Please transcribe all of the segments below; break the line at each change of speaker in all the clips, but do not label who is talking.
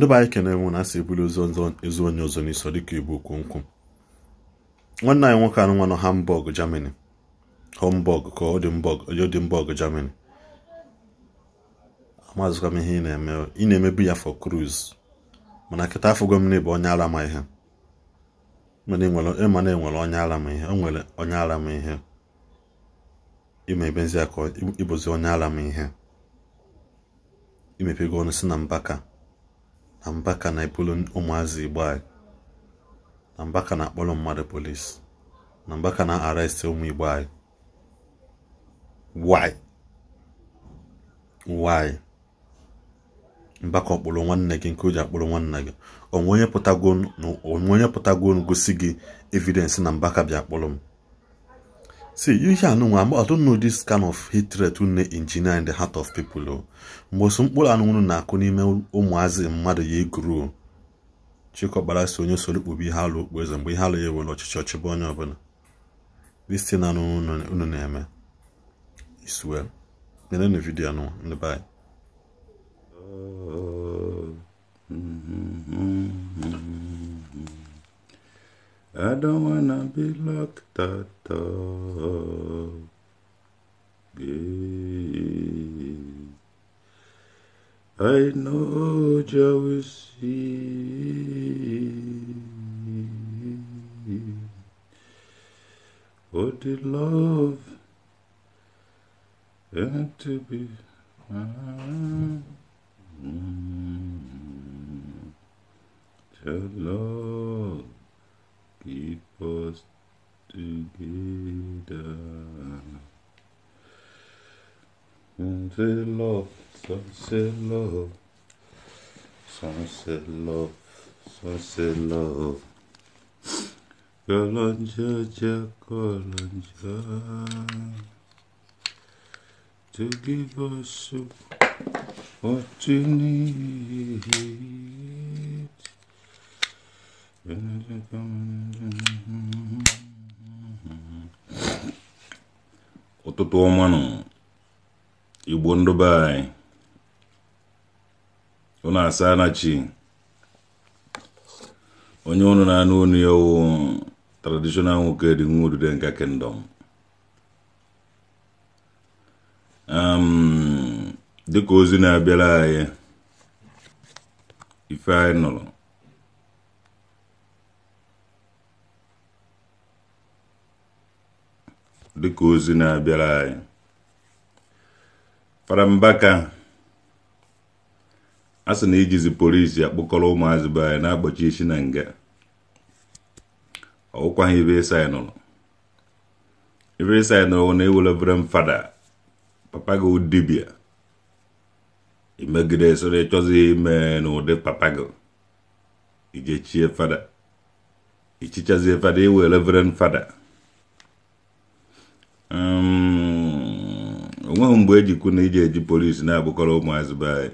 ndị be anyị kene na asị ebuli ụzọ ezu onye ọzọ n'iso dịka igbo kwomkwom nwanne anyị nwoke anụ nwa nọ Hamburg Germany Hamburg ka Odinburg Germany amazụkwa m ihe ị na na-emebi ya for cruise mana kịta afọ gọmini bụ onye ara ma ihe ịma na enwere onye ara m ihe o nwere onye ara ma ihe ịma ebezi aka ịbụzi onye ara m ihe imepego ọnụ si na mbaka na mbaka na-ebulu ụmụazị igbo anyị na mbaka na-akpọrọ mmadụ polis na mbaka na-arestị ụmụ igbo anyị why why mbaka ọkpụrụ nwanne gị nke o ji akpụrụ nwanne gị onwe onye pụtago gosi gị evidensị na mbaka bịa kpụrụ m see ihe anụnwa I don't know this kind of hatred na engineer in the heart of people o mgbe osu mkpụrụ anụnwụrụ na-akụ n'ime ụmụazị mmadụ ya eguru chịkọbara si onye solukpobi ihe alụ okpu eze mgbe ihe alụ ya ewere ọchịchị ọchịbụ onye ọbụla this thing anụnwụ unu na-eme is well nenenu vidio anụnwa ndị be I don't wanna be locked at Yeah. I know jealousy. What did love and to be? Mm mm-hmm. To love keep us together. Sunset love, sunset love, sunset love, sunset love. Kalanja, ja, kalanja. To give us what you need. ụtụtụ
ọma nọ igbo ndị be anyị asa onye ụnụ na-anụ unu ya wụ nwoke dị nwa odide nke kingdom dịka ozi na-abịara anyị ife anyị nụrụ dịka ozi na-abịara anyị farambaka a sị na ijizi polisi akpọkọrọ ụmụazị be anyị na-akpọchi isi na nga ọgwụkwaghị ibe ebe ịsa nụrụ ebe ịsa nụrụ na ewelebere m fada papa gị dibịa imegide soro ịchọzi ime n'ụdị papa gị ijechie fada ichichazie fada iwelebere m fada onweghị mgbe ejikwu na iji eji polisi na-abụkọrọ ụmụazị be anyị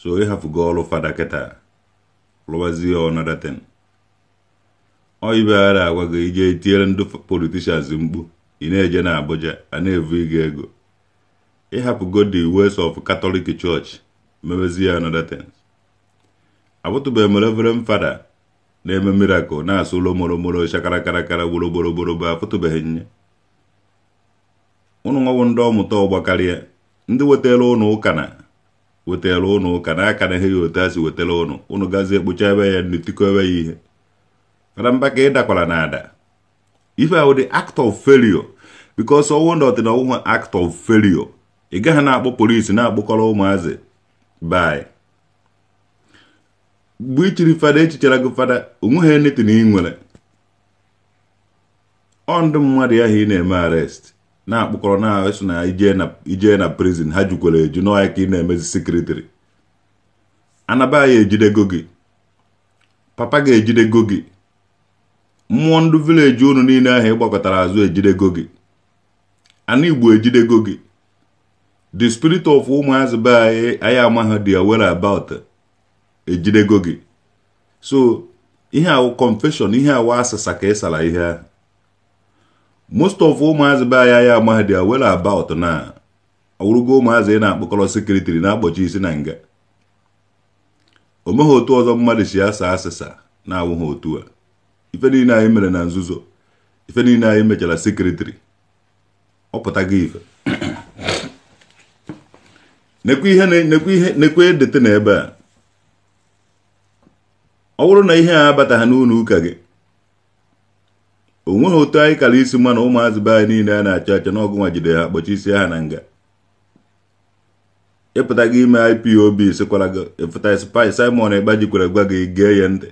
so ịhafụgo ọrụ fada kịta lụwazie ọnadatin oyibeghara agwa gị ije tinyere ndị politishans mkpu ị na-eje na Abuja a na-evu ịga ego ịhapụgo the wes of Catholic Church mewezie ọnadatin abụtụbeghị m reverend fada na-eme mirakụl na-asụ ụlọ moromoro moro shakara karakara gboro gboro gboro bụ afụtụbeghị nye ụnụ nwawo ndị ọmụta ọgbakarịa ndị wetara ụnụ ụka na wetara ụnụ ụka na aka na ihe ya otu a wetara ụnụ ụnụ gazi ekpocha ebe ya nri tikowe ya ihe fara mba ka dakwara na ada ife ahụ dị act of failure because ọnwụ ndị na ọnwụhụ act of failure ị gaghị na-akpọ polisi na akpụkọrọ ụmụazị bai mgbe ichiri fada echichara gị fada onweghị na ị nwere ọ ndị mmadụ ya ị na-eme arrest na-akpụkọrọ na-eso na ije na prison ha jukwere eju n'ọhịa ka ị na-emezi sekretịrị anaba ya ejidego gị papa ga-ejidego gị mmụọ ndụ vileji unu niile ahụ ịgbakọtara azụ ejidego gị ana igbo ejidego gị the spirit of ụmụazị be anyị anyị amaghị aware about ejidego gị so ihe awụ confession ihe awụ asịsa ka ịsara ihe ahụ most of ụmụazị be anya ya amahadị wel about na awụrụgo ụmụazị ị na-akpọkọrọ sekretiri na-akpọchi isi na nga o otu ọzọ mmadụ si asa asịsa na-awụghị otu a ife niile anyị mere na nzuzo ife niile anyị mechara sekretiri ọ pụtago ife nekwe ihe n'ebe a ọ bụrụ na ihe a abataghị n'ụlọ ụka gị onweghị otu anyị kara isi mma na ụmụazị be anyị niile a na-achọ achọ n'ọgụ nwa jide ha kpọchi isi ha na nga ịpụta gị ime IPOB sikwara gị ịpụta spai Simon Ekpa jikwara gwa gị gee ya ntị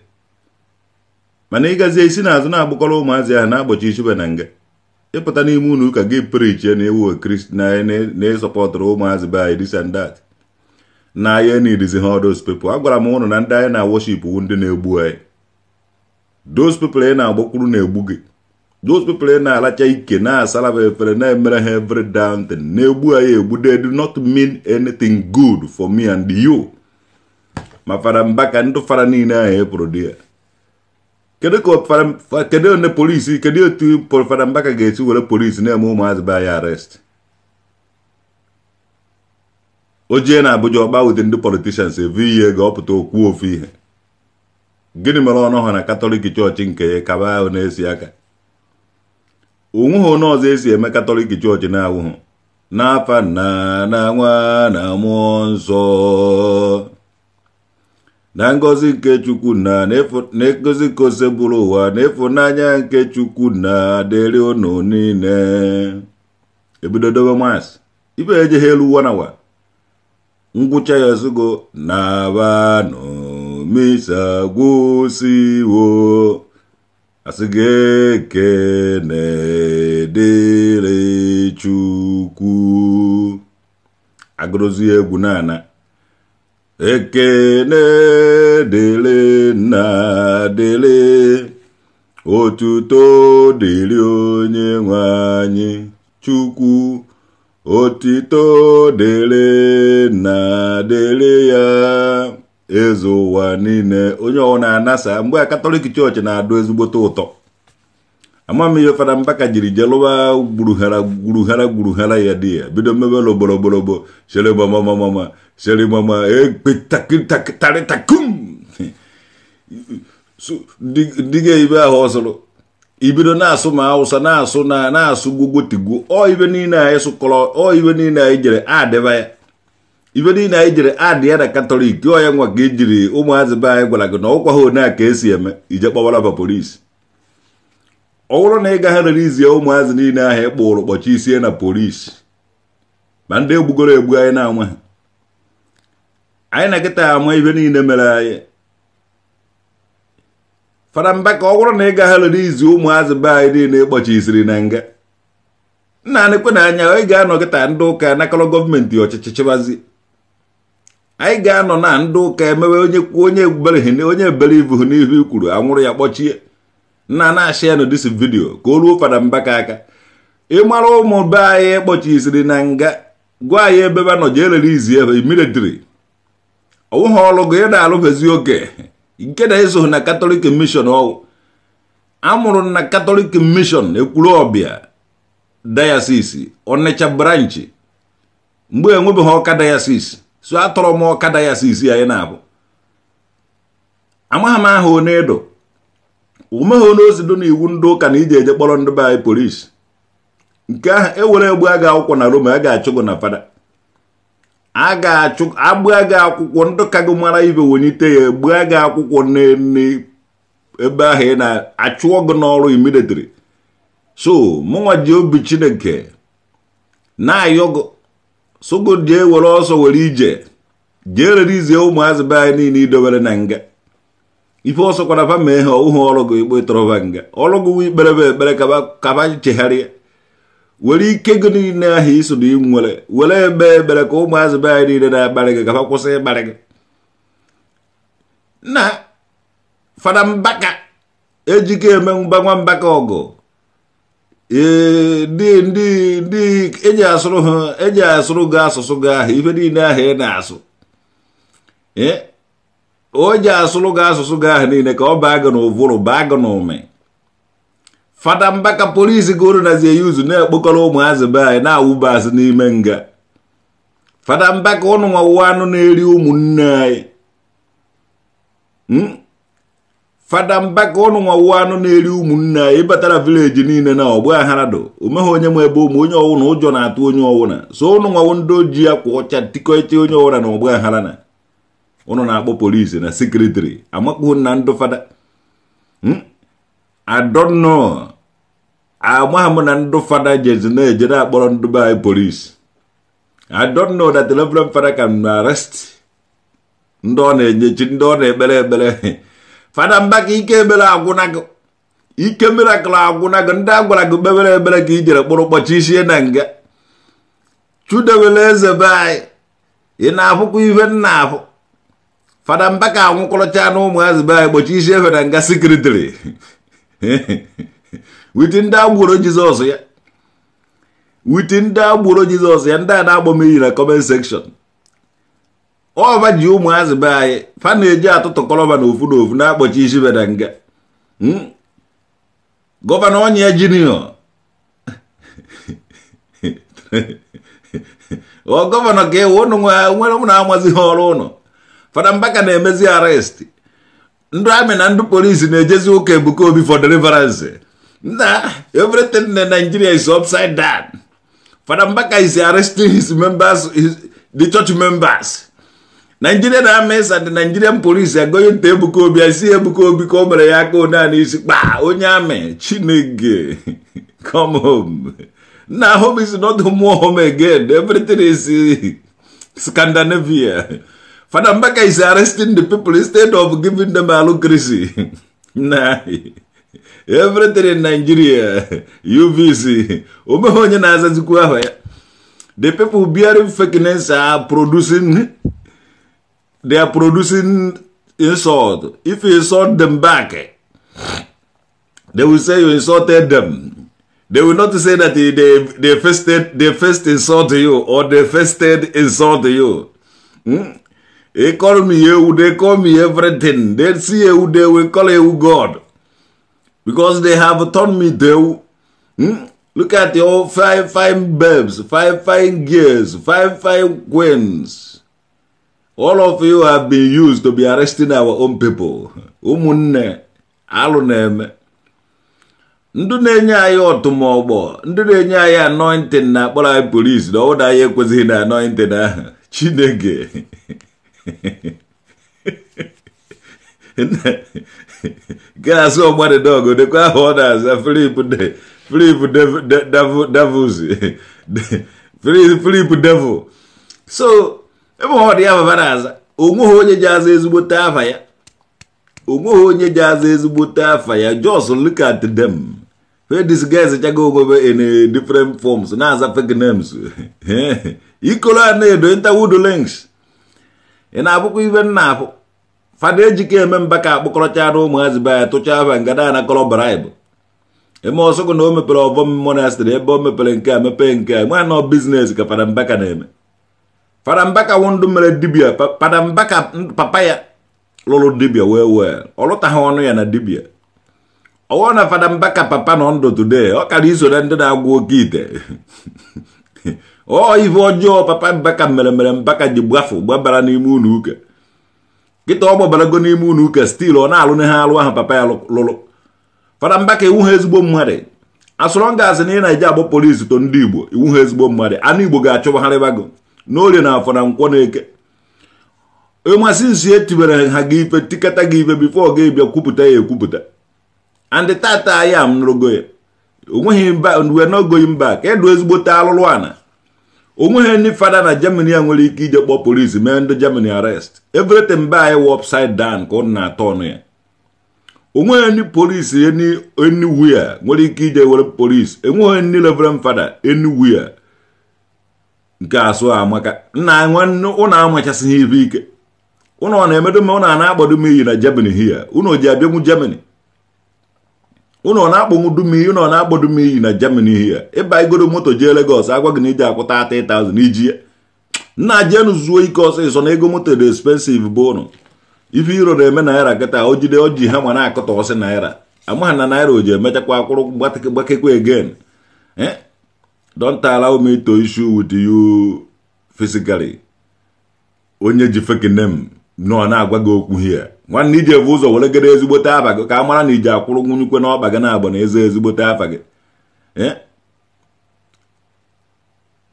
mana ịgazie isi n'azụ na-agbakọrọ ụmụazị ahụ na-akpọchi isibe na nga ịpụta n'ime ụlọ ụka gị prichie na ewu kristi na-esọpọtụrụ e, e ụmụazị be anyị disandat na na nidizi ha those people agwara m ụnụ na ndị anyị na-awọship wu ndị na-egbu anyị those people na-agbakwuru na-egbu gị those people na-alacha ike na asala ha efere na-emere ha every down thing na-egbu ha ya egbu they do not mean anything good for me and you ma fara mbaka ndụ fara niile ahụ epụrụ di ya kedu onye polisi kedu otu fara mbaka ga-esi were polisi na-eme ụmụazị be ya arest ojie na Abuja ọgba wute ndị politishans evu ihe ga ọpụta okwu ofu ihe gịnị mere ọnụ ha na katọlik chọọchị nke ya kaba ahụ na-esi aka onweghị onye ọzọ esi eme katọlik chọọchị na-awụhụ n'afa nna na nwa na mmụọ nsọ na ngozi nke chukwu na ngozi nke ụwa na ịfụnanya nke chukwu na dịrị unu niile ebido dobe maasị ibe ejeghị elu wanawa ngwụcha ya ozugbo na abanụ misa gwụsiwo asị gị ekene dịrị chukwu agụrụzi egwu naana ekene dịrị nna dịrị otuto dịrị onye nwe anyị chukwu otito dịrị nna dịrị ya ezu ụwa niile onye ọwụna anasa mgbe a katọlik chọọchị na-adụ ezigbote ụtọ ama m ihe fada mbaka jiri jelụwa gburughara gburughara gburughara ya di ya bido mebela ogborogborobo sherebamamamama sherebama ekpetarịtakum diga ibe ahụ ọsụrụ ibido na-asụ ma awụsa na-asụ na na-asụ gbogbotigwu ọ ibe niile anyị sụkọrọ ọ ibe niile anyị jere adịba ya ibe niile anyị jere adị ya na katọlik ọya nwa ka e jiri ụmụazị be anyị gwara gị na ọ ha one a ka esi eme ije kpọbara ba polisi ọ bụrụ na ị gaghị rerizie ụmụazị niile ahụ ị kpụrụ kpọchi isie na polisi ma ndị egbugoro egbu anyị na-anwa ha anyị na kịta ama ibe niile mere anyị fada mba ka ọ bụrụ na ị gaghị rerizi ụmụazị be anyị niile ịkpọchi isiri na nga nna anịkwe na anya ị ga-anọ kịta ndị ụka nakọrọ gọọmenti ọchịchị chịbazi anyị ga-anọ na ndị ụka emewe onye kwuo onye ebubere onye ebere ibu n'ihu kwuru anwụrụ ya kpọchie nna na-achị ya dis vidiyo ka o ruo fada mbaka aka ịmara ụmụ be anyị siri na nga gwa anyị ebe ba nọ jee lere izi ebe militri ọwụghị ọrụ gị ị na-alụbezi oke nke na ịzụhụ na katọlik mishọn ọwụ amụrụ na katọlik mishọn ekwuru ọbịa dayasis ọnịcha branchị mgbe enwebeghị ọka dayasis so atọrọ m ọkada ya si isi anyị na-abụ amaghị m aha onye edo umeghị onye ozi na iwu ndị ụka na ije eje kpọrọ ndị be anyị polisi nke ahụ ewere egbu agha akwụkwọ na roma a ga-achụ gụ na fada a ga-achụ agbụ aga akwụkwọ ndị ka gị mara ibe wonyite ya egbu aga akwụkwọ ebe ahụ ị na-achụọ gị n'ọrụ imidetiri so mụnwa ji obi chineke na-ayọ gị sụgụ e were ọsọ were ije jee rerizie ụmụazị be anyị niile idobere na nga ife ọsọ kwara fa mee ha ụhụ ọrụ gị ikpe tọrọba nga ọrụ gị ikpere be ekpere kaba chegharịa were ike gị niile ahụ iso na were ebe ebere ka ụmụazị be anyị niile na-akparị gị gaba kwụsị ịkparị gị na fada mbaka ejike eme mba nwa mbaka ọgụ ee ndị ndị ndị eji asụrụ ha e asụrụ gị asụsụ gị ahụ ife niile ahụ ị na-asụ ee o ji asụrụ gị asụsụ gị ahụ niile ka ọ baa gị n'ụvụrụ baa gị n'ụmị fada mbaka polisi goro nazie ya uzu na-ekpokọrọ ụmụazị be anyị na-awụba azụ n'ime nga fada mbaka ụnụ nwa anụ na-eri ụmụnne anyị hmm? fada mbaka ọnụ nwa wụ anụ na-eri ụmụnne anyị ịbatara vileji niile na ọgbụ aharado omeghị onye nwe ebe ụmụ onye ọwụna ụjọ na-atụ onye ọwụna so ụnụ nwawo ndị ojii akwa ọcha tikọcha onye ọwụna na ọgbụ aghara na ụnụ na-akpọ polisi na sekretari amakpuo na ndụ fada adọnọ hmm? amaghị m na ndụ fada jezi na-eje na-akpọrọ ndụ be anyị polisi adọnọ that reverend fada can arest ndị ọ na-enyechi ndị ọ na-ekpere ekpere fada mbaka ike ebere agwụna gị ike mirakụl agwụna gị ndị a gwara gị kpebere ebere ka i jere kpụrụ kpọchi isie na nga chudewere eze be anyị ị na-afụkwa ihe nna afụ fada mbaka anwụkọrọcha na ụmụazị be anyị kpọchi isi efe na nga sekretịrị witi ndị agboro jizọs ya witi ndị agboro jizọs ya ndị a na-agbọ m iyi na kọment sekshọn ọba ji ụmụazị be anyị fa na-eji atụtụ kọlọba na ofu na ofu na-akpọchi isi beda nga hmm? gọvanọ ọnya jiniọ ọ gọvanọ ka ịwụ ụnụ nwere ụmụ na-amazi ha ọrụ ụnụ fada mbaka na-emezi arrest ndị amị na ndị polisi na-ejezi ụka ebuka obi for deliverance na everything na Nigeria is upside down fada mbaka is arresting his members the church members nigerian armies and nigerian police agoye nta ebuka ebukobi asi ebuka obi ka o ya aka one a n'isi kpaa onye amị chineke come home na home is not more home again everything is eh, scandinavia fada mbaka is arresting the people instead of giving them allocacy na everything in nigeria uvc omeghe onye na-azazikwu ahụ ya the people bearing fakeness are producing they are producing insult. If you insult them back, eh, they will say you insulted them. They will not say that they, they, they, first, they first insult you or they first insult you. Hmm? They call me you, they call me everything. They see you, they will call you God. Because they have turned me to hmm? Look at your five fine babes, five fine girls, five fine queens. all of you have been used to be arresting our own people ụmụnne alụ na-eme ndị na-enye anyị ọtụmọgbọ ndị na-enye anyị anointing na-akpọrọ anyị polisi na ọwụda anyị ekwezighị na anointing ahụ chineke gaasị ọgbadịdọgụ dịkwa ahụ ọ na-aza Filip Filip devils Filip devil so ebe ọ dị ya babara O onweghị onye ji aza ezigbote afa ya onweghị onye ji aza afa ya just look at them where these guys chago ogwebe in different forms na-aza fake names ikolo a na-edo interwood links ị na-abụkwa ibe nna afụ fada ejike eme mba ka akpọkọrọchara ụmụazị be tụcha afa ngada na kọrọ bribe eme ọsọgụ na o mepere ọbọm monastri ebe o mepere nke a mepee nke a nwa nọ biznes ka fada mbaka na-eme Fadambaka wọndụ mere dibia Fadambaka papa ya lụrụ dibia wee wee ọ lụtaghị ọnụ ya na dibia ọwụ na mbaka papa nọ ndụ today ọ kara iso na ndị na-agwụ oke ite ọ ife ọjọọ papa mbaka mere mere mbaka ji gbafu gbabara n'ime ụlọ ụka kịta ọ gbabarago n'ime unu uke stil ọ na-alụ ha alụ ahụ papa ya lụrụ Fadambaka iwu ha ezigbo mmadụ asụrọ ngazi na ị na-eji agbụ polisi to ndị Igbo iwu ha ezigbo mmadụ anụ Igbo ga-achụbagharịbago n'orie na afọ na nkwọ na eke ịmasị nsi etiwere ha gị ife tikata gị ife bifo ga kwupụta ya ekwupụta andị tata ya m nụrụgo ya onweghị mba wee n'ogoghị mba ka edu ezigbote alụlụ ana onweghị ndị fada na germany a nwere ike ije kpọọ polisi mee ndị germany arest everything mba anyị wụ upside down ka ọ na-atọ ọnụ ya onweghị ndị polisi anywhere nwere ike ije were polisi enweghị ndị reverend fada anywhere nke asụ amaka nna nwanne ụnụ amachasịghị ibe ike ụnọ na-emedo mma ụnụ a na-agbado m iyi na Germany hia ụnọ ji abịanwu Germany ụnọ na-akpọnwu dum iyi ụnụ na-agbado m iyi na Germany hia ịba igodo moto jee Lagos agwa gị na iji akwụta 30,000 iji ya nna jenu zuo ike ọsịsọ na ego moto dị expensive bụ ụnụ ife iro na-eme naira kịta o jide o ji hama na-akụta ọsị naira amaghị na naira o ji emechakwa akwụrụ gbakekwa again eh? don't allow me to issue with you physically onye ji fake name nọ na-agwa gị okwu hie nwanne iji evu ụzọ were gere ezigbote afa gị ka a mara na iji akwụrụ nwunyikwe n'ọkpa gị na-agba na eze ezigbote afa gị eh?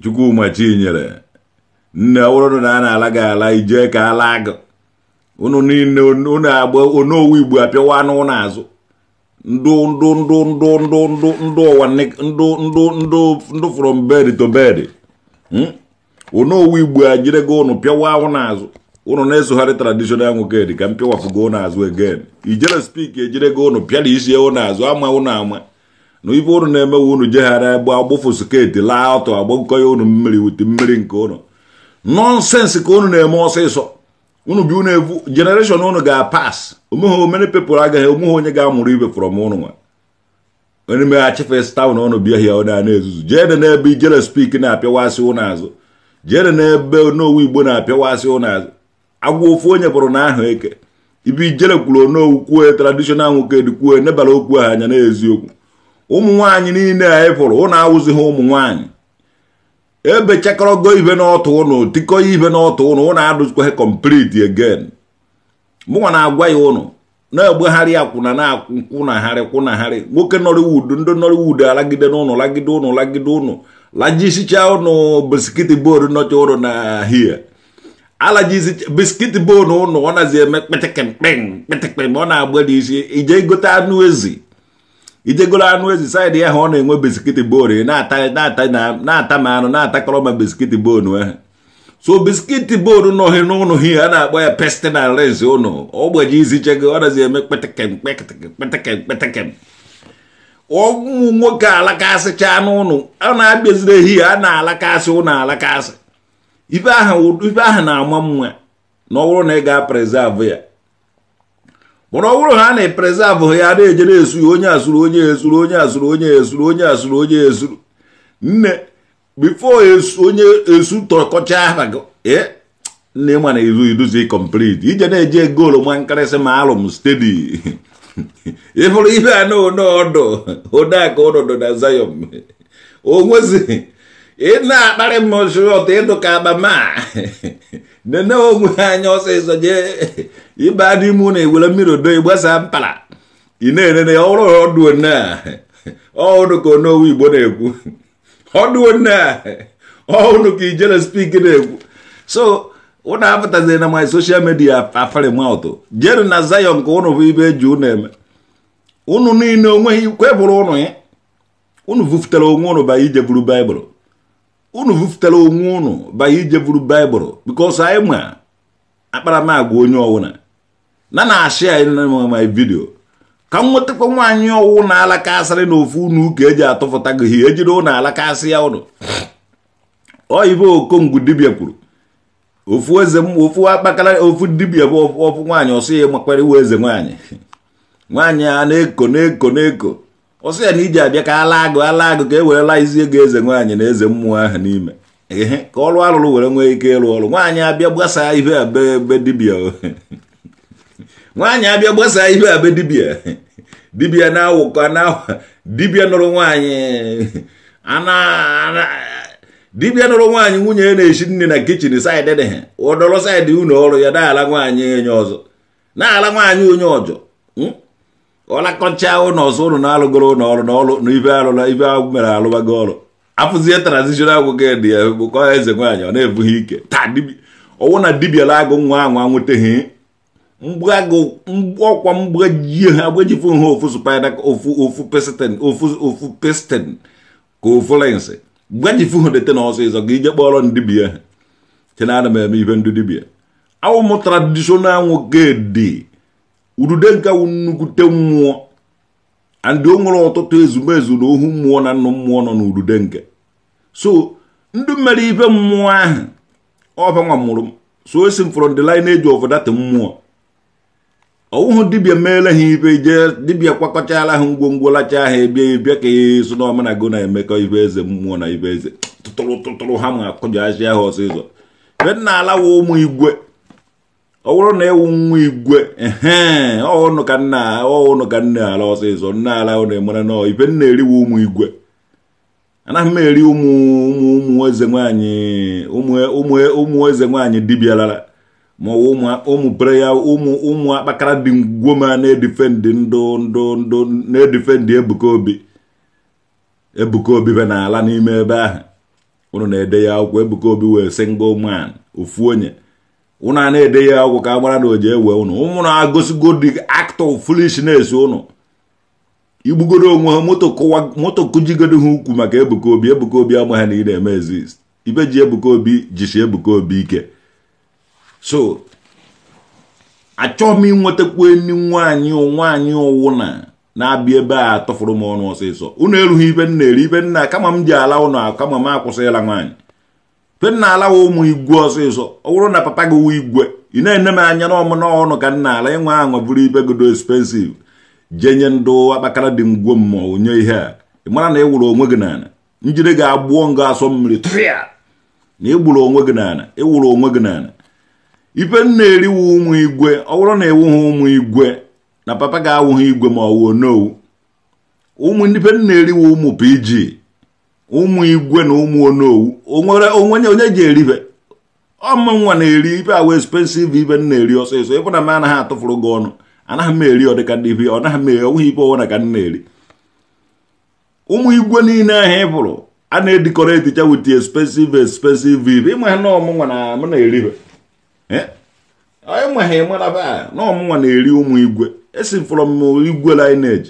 Chukwuma Chinyere nne ọwụrụ na a na-ala gị ala ijee ka ala gị unu niile agba onowu igbo apịawa anụ azụ. ndụ ndụ ndụ ndụ ndụ ndụ ndụ ụwa ndụ ndụ ndụ ndụ from bed to bed hmm? onowu igbo a jire gị ụnụ pịawa ahụ n'azụ ụnụ na-esogharị traditional nwoke dị ka m pịwafụgo n'azụ again ijere spik ejire gị ụnụ pịara isi ewu n'azụ ama ụnụ ama na ife ụnụ na-emewe ụnụ jeghara egbe agbụfụ sketi laa ọtọ agbakọ ya ụnụ mmiri wute mmiri nke ụnụ nọnsensị ka ụnụ na-eme ọsịsọ unu bi unu evu generation unu ga-apas omeghe omene people agaghị omeghe onye ga-amụrụ ibe from unu nwa onye meghachi fes tawn ọnụ bịa hia na-ezuzu jeede n'ebe ijere spik na-apịawasị ụnọ azụ jeede n'ebe onowu igbo na-apịawasị ụnọ azụ agwa ofu onye bụrụ na ahụ eke ibi ijere kwuru onowu kwue tradishonal nwoke dịkwue nebara okwu ha anya n'eziokwu ụmụ nwaanyị niile anyị pụrụ ụnụ awụzighị ụmụ nwaanyị ebe chekọrọgo ibe n'ọtụ ụnụ tikọ ibe n'ọtụ ụnụ ụnụ adụzikwa ha complete mụnwa na-agwa ya ụnụ na-egbegharị akwụna na akwụnagharị kwụnagharị nwoke nọriwud ndị nọrịwud alagide n'ụnụ lagide ụnụ lagide ụnụ lajisicha ụnụ biskiti bol nọcha ụnụ na hie alajizi biskiti ụnụ ọ nazi eme kpịtịkpịm kpịtịkpịm ọ na-agba isi ije gote anụ ezi ijegoro anụ ezi saịdị ya ha ọ na-enwe biskit bon na-ata ma anụ na-atakọrọ ma biskit bon ahụ e. so biskit bon nọghị n'ụnụ ha a na-akpọ ya na res ụnụ ogbeji izichego ọ nazi eme kpetekem kpetekem ụmụ nwoke alakasịcha n'ụlọ a na-abịaziri ehihie a na-alakasị ụlọ alakasị ife aha na-ama nwa na ọ bụrụ na ị ga-aprezavu ya mana ọ bụrụ ha na-eprezavụ ya na-eje na-esuru onye azụrụ onye ezuru onye azụrụ onye ezuru onye azụrụ onye ezuru nne bifo onye esu tọkọcha aha gị ee eh, nne ma na izu iduzi complete ije na-eje goolu ma nkarịsị ma alụm stedi ịfụrụ ibe a na oneọdụ odeaka ọnọdụ na Zion onwezi ị na-akparị m ozu ọtọ ịdụ ka abama nene onwe anya ọsịsọ jee ịba dị mụ na ewere mmiri odo ịgbasa mpala ị na-enene ya ọrụ ọdụ na ọhụrụ ka owu igbo na-ekwu ọdụ a ọhụrụ ka ijere spik na-ekwu so ụnụ apụtazi na my social media afarimatụ jeru na zayon ka ụnụ bụ ibe eji ụnụ eme ụnụ niile onweghị kwebụrụ ụnụ ya ụnụ vufutara onwe ụnụ ba ije buru baịbụl unu vụfutara onwe unu banye ije buru baịbụl bikos anyị ma akparamagwa onye ọwụna na na-achị anyị my vidio ka m nwetakwa nwaanyị ọwụ na alaka asịrị na ofu unu ka eji atụfụta gị ihe ejiri ụnụ alaka asị ya ụnụ oyibo okongwu dibia kwuru ofu eze ofu akpakara ofu dibia bụ ofu nwaanyị ọsọ ya makwara iwe eze nwaanyị nwaanyị a na-eko na-eko na-eko ọsọ ya na iji abịa ka ala agụ ala agụ ka e werela izi ego eze nwaanyị na eze mmụọ ahụ n'ime ehe ka ọrụ arụrụ were nwee ike ịrụ ọrụ nwaanyị abịa gbasaa ihe a be dibia nwaanyị abịa gbasaa ihe a be dibịa dibịa na-awụkọ na dibịa nụrụ nwaanyị ana dibịa nụrụ nwaanyị nwunye ya e na-eshi nne na kichin saịdị dị ha ụdọrọ saịdị ụnọ ọrụ ya na-ala nwaanyị onye ọzọ na-ala nwaanyị onye ọjọ hmm? ọ na-akọcha ụnọ ọzọ ụnụ na-alụgoro ụlọ ọrụ na ọrụ na ibe alụla ibe ahụ mere alụbago ọrụ afụzie transitional agwụgị dị ya bụkọ eze nwaanyị ọ na-ebughị ike taa ọwụ na dibịa la agụ nwa ahụ anwụteghị ọkwa mgbajie ha agbajifu ha ofu spida ofu pestin ofu pestin ka ofu lensi gbajifu ha dete n'ọsọ ịzọ ga ije kpọrọ ndibịa ha chena ana m eme ibe ndị dibịa awụ m tradishonal nwoke dị udude nke nnukwute mmụọ andị o nwere ọtụtụ ezumezu na ohu mmụọ na nnụ mmụọ nọ n'udude nke so ndị mere ibe mmụọ ahụ ọbanwa mụrụ so esi m from the lineage eji that mmụọ ọwụhụ dibia meela ha ibe je dibia kwakọchaala ha ngwongwo lachaa ha ebie bịa ka ya so na go na-emekọ ibe eze mmụọ na ibe eze tụtụrụ tụtụrụ ha ma akụjọ ahịa ha ọsịsọ be nna ala wụ ụmụ igwe ọ bụrụ na ewu nwa igwe ee ọụnụ ka nna ọụnụ ka nna ala ọsịsọ nna ala ụnụ mara na ife nna eriwe ụmụ igwe anaghị m eri ụmụ ụmụ ụmụ eze nwaanyị ụmụ ụmụ eze nwaanyị dibịa lara ma ụmụ bere ya ụmụ ụmụ akpakara dị ngwoma na-edifendị ndụ ndụ ndụ na-edifendị ebuka obi ebuka obi be na ala n'ime ebe ahụ ụnụ na-ede ya akwụkwọ ebuka obi wee sị ngwa ụmụ ofu onye ụnụ a na-ede ya ọgwụ ka a na oji ewe ụnụ ụmụnụ agosigo the act of foolishness ụnụ igbugoro onwe ha moto kụjigodo ha ukwu maka ebuka obi ebuka obi ama na ị na-eme exist ibe ji ebuka obi jisi ebuka obi ike so achọghị m inwetakwu enyi nwaanyị nwaanyị ụwụna na-abịa ebe a tụfụrụ m ọnụ ọsịsọ unu erughị ibe nna eri ibe nna kama m ji ala ụnụ kama m akwụsịla nwaanyị mgbe m na ụmụ igwe ọsịsọ ọ bụrụ na papa gị wụ igwe ị na-ene m anya na ọmụ n'ọnụ ka m ala ịnwe aṅụ bụrụ ibe godo expensiv jee nye ndụ akpakara dị ngwo mmụọ nye ihe a ị mara na ị e wụrụ onwe gị n'ala njide gị agbụọ nga asọ mmiri tụrịa na ị e onwe gị n'ala ị e wụrụ onwe gị n'ala ife m na-eriwu ụmụ igwe ọ bụrụ na ewughị ụmụ igwe na papa gị awụghị igwe ma ọ wuo n'owu ụmụ ife m na-eriwu ụmụ pg ụmụ igwe na ụmụ onowu onwere onwenye onye ji eribe ọmụnwa na-eri ibe awa expensive ibe m na-eri ọsịsọ ịbụ na m anaghị atụfuru gị ọnụ anaghị m eri ọ dịka ndị ibe ọ naghị m onweghị ibe ọnwụna ka m na-eri ụmụ igwe niile ahụ ị bụrụ a na-edikọrọ edicha wit expensive expensive ibe ịma ha na ọmụnwa na m na-eribe ịma ha ịmara na nwa na-eri ụmụ igwe esi m from igwe lineage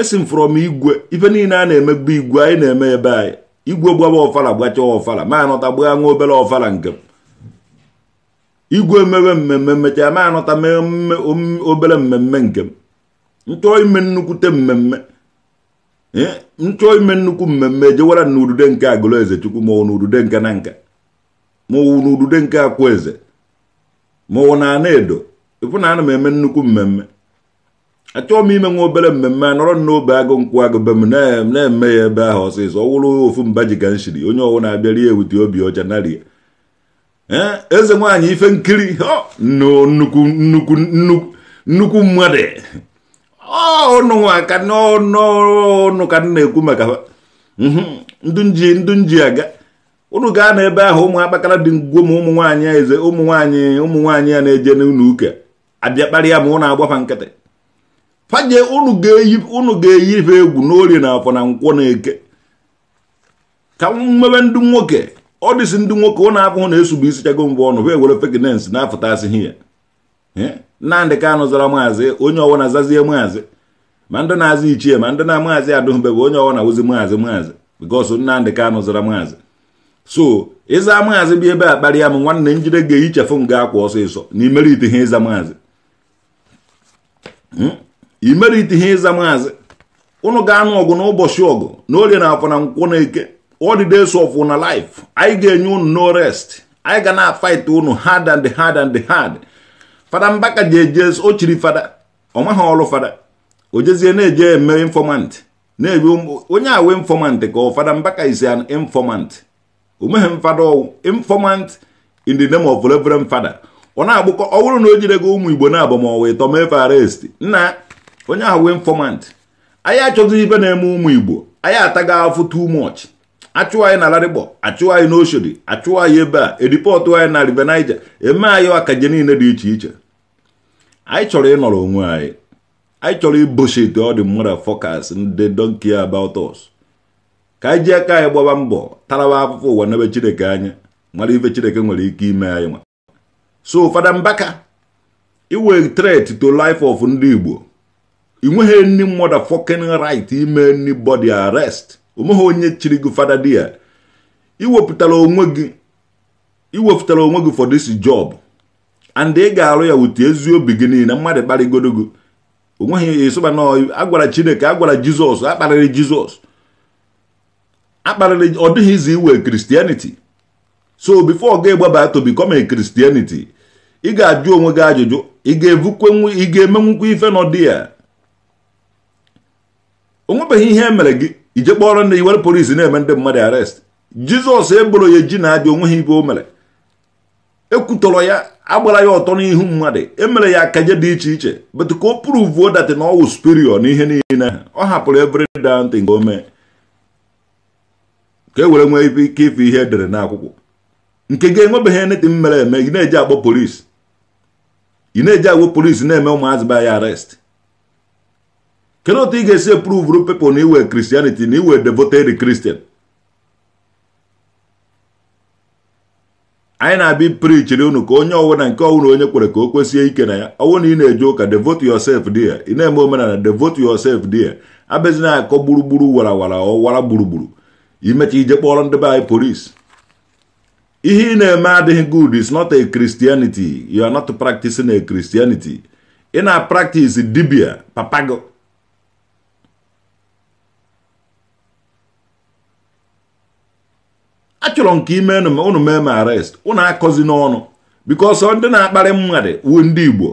esi m fọrọ m igwe ife niile a na-emegbu igwe anyị na-eme ebe anyị igwe gbaba ọfala gbachaa ọfala ma anọta gbaa nwa obere ọfala nke igwe mewe mmemme mmecha ma anọta mee obere mmemme nke m nchọọ ime nnukwute mmemme nchọọ eh, ime nnukwu mmemme ejewara n'udude nke agụleze chukwu ma ọ n'udude nke na nka ma ọ n'udude nke akwụ eze ma ọ na ana ịfụ na ana m eme nnukwu mmemme achọọ m ime nwa obere mmemme nọrọ n'obe agụ nkwụ agụ be m na-eme ya ebe ahụ ọsịsọ ọ wụrụ ofu mba ji ka onye ọwụ na-abịa rie ewute obi ọcha narie ya eze nwaanyị ife nkiri nnukwu mmadụ ọnụnwa aka n'ọnụ ka na-ekwu maka mhm, ndunji ndunji aga unu gaa n'ebe ahụ ụmụ akpakara dị ngwo ma ụmụ nwaanyị eze ụmụ nwaanyị ụmụ nwaanyị ya na-eje n'ụlọ uke abịa kparịa ma ụ na-agbafa nkịtị faje unu ga-eyi ife egwu n'ori na afọ na nkwọ na eke ka mmebe ndị nwoke ọ dịsị ndị nwoke ụnụ afọ na-esugbu isi chago mbụ ọnụ wee ewere fekinens na-afụtasịghị ya nnamdị kanụ zara maazị onye ọwụna zazie maazị ma ndị na-azị ichie ma ndị na maazị adụhụbebe onye ọwụna wụzi maazị maazị bikos nnamdị kanụ zara maazị so ịza maazị bịa ebe a kparịa m nwanne njide ga-ehichefụ m ga akwa ọsịsọ na ite ihe ịza maazị hmm? imerite ihe ịza maazị ụnụ ga-anụ ọgụ n'ụbọchị ọgụ na orie na afọ na nkwụ na eke odides ọfụ na life anyị ga-enye unu no rest anyị ga na afit unu hard and hard and hard fada mbaka ji eje o chiri fada ọ maghị ọrụ fada o jezie na-eje eme infọmant na-ewe onye awe infomant ka ọ fada mbaka is an O omeghe mfada ọwụ infọmant in the name of reverend fada ọ na-agbụkọ ọ bụrụ na o jire gị ụmụ igbo na abamọwa ịtọ mefe arest nna onye ahụ wee informant anyị achọghịzi ibe na-eme ụmụ igbo anyị ataghị afụ tu much achụwa anyị na larịgbo achụwa anyị n'oshodi achụwa anyị ebe a edipọtụ anyị na river niger eme anyị akaje niile dị iche iche anyị chọrọ ịnọrọ onwe anyị anyị chọrọ ibochite ọ dị mmadụ fọkas ndị donkia about ka anyị ji aka anyị gbaba mbọ taraba afụfụ ụwa n'ebe chineke anya mara ife chineke nwere ike ime anyị nwa so fada mbaka iwe threat to life of ndị igbo ị nweghị any motherfucking rit ime anybody arrest onweghị onye chiri gị fada di ya iwepụtara onwe gị iwepụtara onwe gị for this job and ị ga-arụ ya wute ezi obi gị niile mmadụ kparịgodo gị onweghị ịsụba na agwara chineke agwara jizọs akparịrị jizọs akparịrị ọ dịghị izi iwe kristianity so before ga egbaba to become a christianity ị ga-ajụ onwe gị ajụjụ ị ga-emenwukwa ife n'ọdị ya onwebeghị ihe e mere gị ije kpọrọ ndị iwere polis na-eme ndị mmadụ arest jizọs eboro ya eji na-abịa onweghị ibe o mere ekwutọrọ ya agbara ya ọtọ n'ihu mmadụ emere ya akaje dị iche iche betu ka o pruvuo datị na ọwụ superior na ihe niile ọ hapụrụ every down nke nke mee ka e were nwee ike ife ihe edere akwụkwọ nke gị enwebeghị neti m mere eme ị na-eji agba polis ị na-eji agwa polis na-eme ụmụazị ba ya arest kedu otu ị ga-esi pruvuru pepl na iwe kristianity na iwe devoted kristian anyị na-abịa prichiri unu ka onye ọwụna nke ọwụna onye kwere ka o kwesie ike na ya ọwụ na ị na-eje ụka devote yourself there ị na-eme omenala devote yourself there na akọ gburugburu wara wara ọwara gburugburu imecha ije kpọrọ ndị be anyị polis ihe ị na-eme adịghị good is not a christianity you are not practicing a christianity ị na-practice dibia papago achọrọ nke ime unu mee m arrest unu akọzi n'ọnụ bikos ndị na-akparị mmadụ wu ndị igbo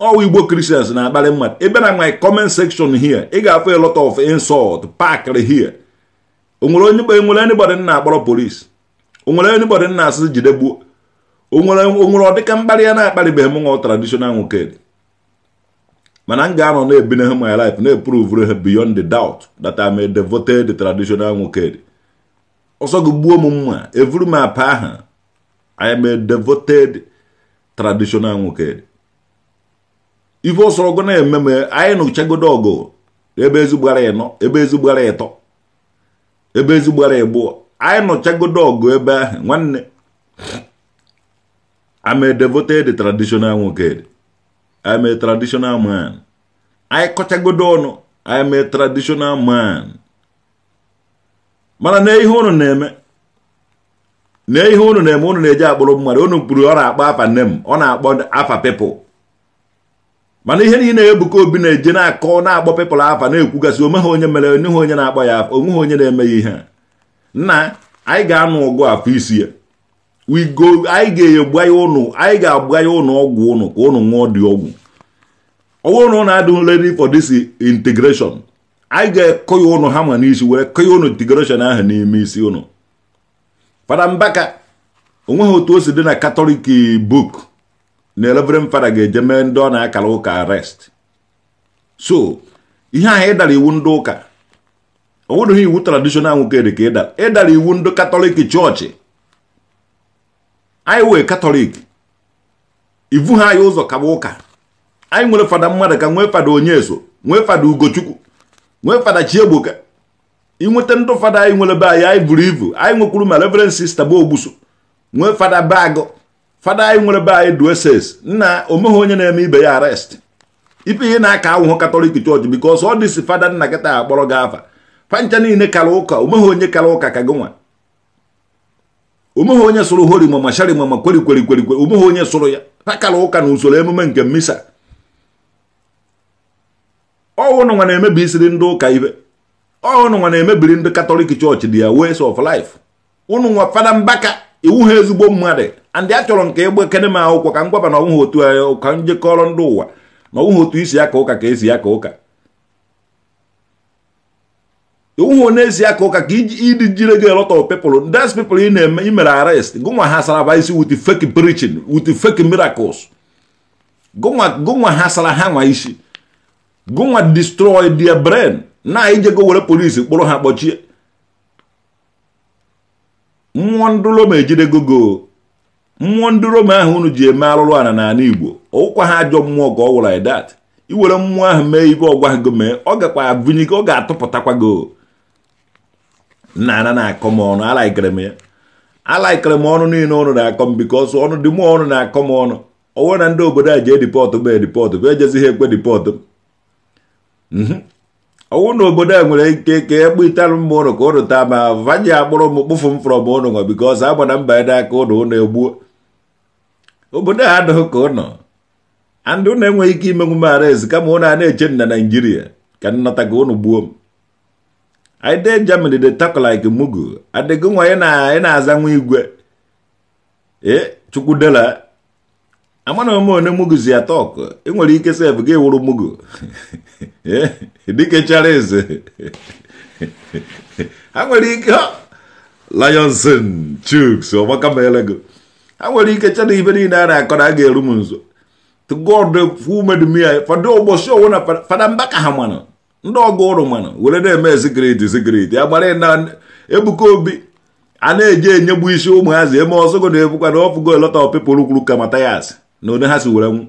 ọwa igbo kristians na-akparị mmadụ ebe na my comment section here ị ga-afụ a lot of insult pakịrị here onwere onye enwere anybody na-akpọrọ polis onwere anybody na-asị jide gbuo onwere onwere ọdịka mkparị ya na-akparịbeghị m nwa traditional nwoke mana m ga-anọ na-ebinehe my life na-eprovre ha beyond the doubt that I'm a devoted traditional nwoke ọsọ gị gbuo m mma evuru m apa aha I am a devoted traditional nwoke ife ọsọrọgụ na-eme m anyị nụchagodo ọgụ ebe ezigbara ịnọ ebe ezigbara ịtọ ebe ezigbara ịbụọ anyị nụchagodo ọgụ ebe ahụ nwanne am a devoted traditional nwoke am a traditional man anyị kọchagodo ọnụ am a traditional man mana na ihe unu na-eme na ihe unu na-eme unu na-eji akpụrụ mmadụ unu kpuru ọ na-akpọ afa nne m ọ na-akpọ afa pepụl mana ihe niile Ebuka Obi na-eje na-akọ na-akpọ pepụl afa na-ekwugasị onwe onye mere onye ha onye na-akpọ ya afa onwe ha onye na eme ya ihe nna anyị ga-anụ ọgụ afọ isi ya wigo anyị ga-egbu ya ụnụ anyị ga-agba ya ụnụ ọgwụ ụnụ ka ụnụ nwụọ dị ọgwụ ọgwụ ụnụ na adụ nledi for this integration anyị ga-ekọ ya ụnụ hama n'isi were kọ ya ụnụ digoration ahụ n'ime isi ụnụ fada mbaka onweghị otu o si dị na katọlik buk na elebrem fada ga-eje mee ndị ọ na-akara ụka arest so ihe ahụ ịdara iwu ndị ụka ọ iwu tradishonal nwoke dị ka ịdara ịdara iwu ndị katọlik chọọchị anyị wee katọlik ivu ha anyị ụzọ kaba ụka anyị nwere fada mmadụ ka nwee fada onye eso nwee fada ugochukwu nwee fada Chiegbuka inweta ndụ fada anyị nwere be anyị anyị buru ibu anyị nwekwuru ma reverend sista bụ ogbuso nwee fada bagụ fada anyị nwere be anyị dueses nna omeghe onye na-eme ibe ya arest ịpụ ihe na-aka ahụhụ katọlik chọọchị bikos ọ dịsi fada nna kịta akpọrọ gị afa fancha niile kara ụka omeghe onye kara ụka ka gị nwa omeghe onye sụrụ hori mama shari mama kweri kweri kweri kweri omeghe onye sụrụ ya ha kara ụka na usoro emume nke mmisa ọnwụnụnwa na-emebi isiri ndị ụka ibe ọnwụnụnwa na-emebiri ndị katọlik chọọchị dị ya ways of life ụnụ nwa fada mbaka iwu ha ezigbo mmadụ andị a chọrọ nke egbe kene m akwụkwọ ka m gwaba na ọnwụghị otu anya ka ndị ụwa na ọnwụghị otu isi aka ụka ka esi aka ụka iwu ha na-esi aka ụka ka ịdị jire gị lot of people that's people ị na-eme imere arrest gụnwa ha saraba isi with fake preaching with fake miracles gụnwa ha sara ha nwa isi gụnwa destroy their brain na ijego were polisi kpụrụ ha kpọchie mmụọ ndị Roma ejide gogo mmụọ ndị ahụ unu ji eme alụrụ ala n'ala Igbo ụkwa ha ajọ mmụọ ka ọ wụrụ idat iwere mmụọ ahụ mee ibe ọgwa go mee ọ gakwa abụnye ọ ga-atụpụtakwago nna ana na-akọ m ọnụ alaikere m ya alaikere m ọnụ niile ọnụ na-akọ m bikọsụ ọnụ dị mụ ọnụ na-akọ m ọnụ onwe na ndị obodo a ji edipọtụ bụ edipọtụ bụ ha ekwe dipọtụ ọnwụ mhm. na obodo a nwere ike ka e gbu mma ụnụ ka ụnụ taa ma agbụrụ akpụrụ m kpụfụ m frọm ụnụ nwa bikos agba na mba aka ụnụ ụnụ egbuo obodo a adịghị ka ụnọ andị ụnụ enweghị ike imenwu m arez kama ụnụ a na-eche na naijiria ka nnọta ka ụnụ gbuo m anyị dee de tako like mugu adịgo nwa ị na-aza nwa igwe ee eh, chukwudela amana omone atọ ya ị nwere ike sef gị wụrụ mugu eh, dike chara eze ha nwere ike lionson chuks ọgbakamelego ha nwere ike chara ibe niile a na-akọ na a ga-eru m nso god fumedumia fọdụ ụbọchị owu na fada ka ha mana ndị ọgụ ụrụ mana were na-eme sigriti ya na ebuka obi a na-eji enyegbu isi ụmụazị eme ọsọgo na-ebukwa na ọfụgo elota pepụl kwuru na ụdị ha si were nwụ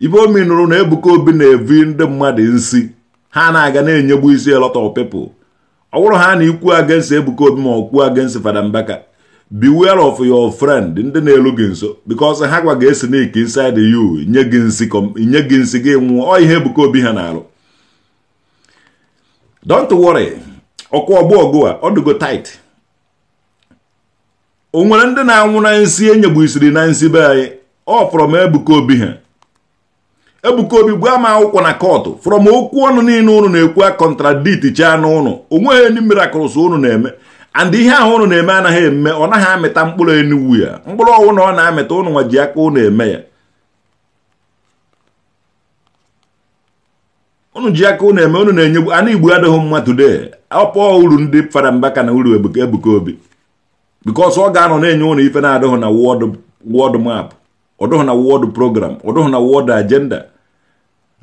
ibe omi nụrụ na Ebuka Obi na-evi ndị mmadụ nsi ha na-aga na-enyegbu isi of pepụl ọ bụrụ ha na ikwu against Ebuka Obi ma ọ kwuo against Fada Mbaka beware of your friend ndị na-elu gị nso because ha gwa gị esi n'ike inside you nye gị nsi nye gị nsi gị nwụọ ọ ihe Ebuka Obi ha na-alụ don't worry ọkụ ọgbụ ọgụ a ọ dịgo o nwere ndị na-anwụ na nsi e isiri na nsi be anyị ọ from Ebuka Obi ha Ebuka Obi gwa m akwụkwọ na kọtụ from okwu ọnụ niile ụnụ na-ekwu a kọntradit chaa n'ụnụ onweghị enyi miracles ụnụ na-eme and ihe ahụ ụnụ na-eme anaghị eme ọ naghị amịta mkpụrụ enuwu ya mkpụrụ ọwụ na ọ na-amịta ụnụ nwa ji aka ụnụ eme ya ụnụ ji aka ụnụ eme ụnụ na enye anụ igbo adịghị mma today ọpọ uru ndị fara mbaka na uru ebuka obi because ọ ga-anọ na-enye ụnụ ife na-adịghị na wọd map ọdọghọ na wọd program ọdọghọ na wọd agenda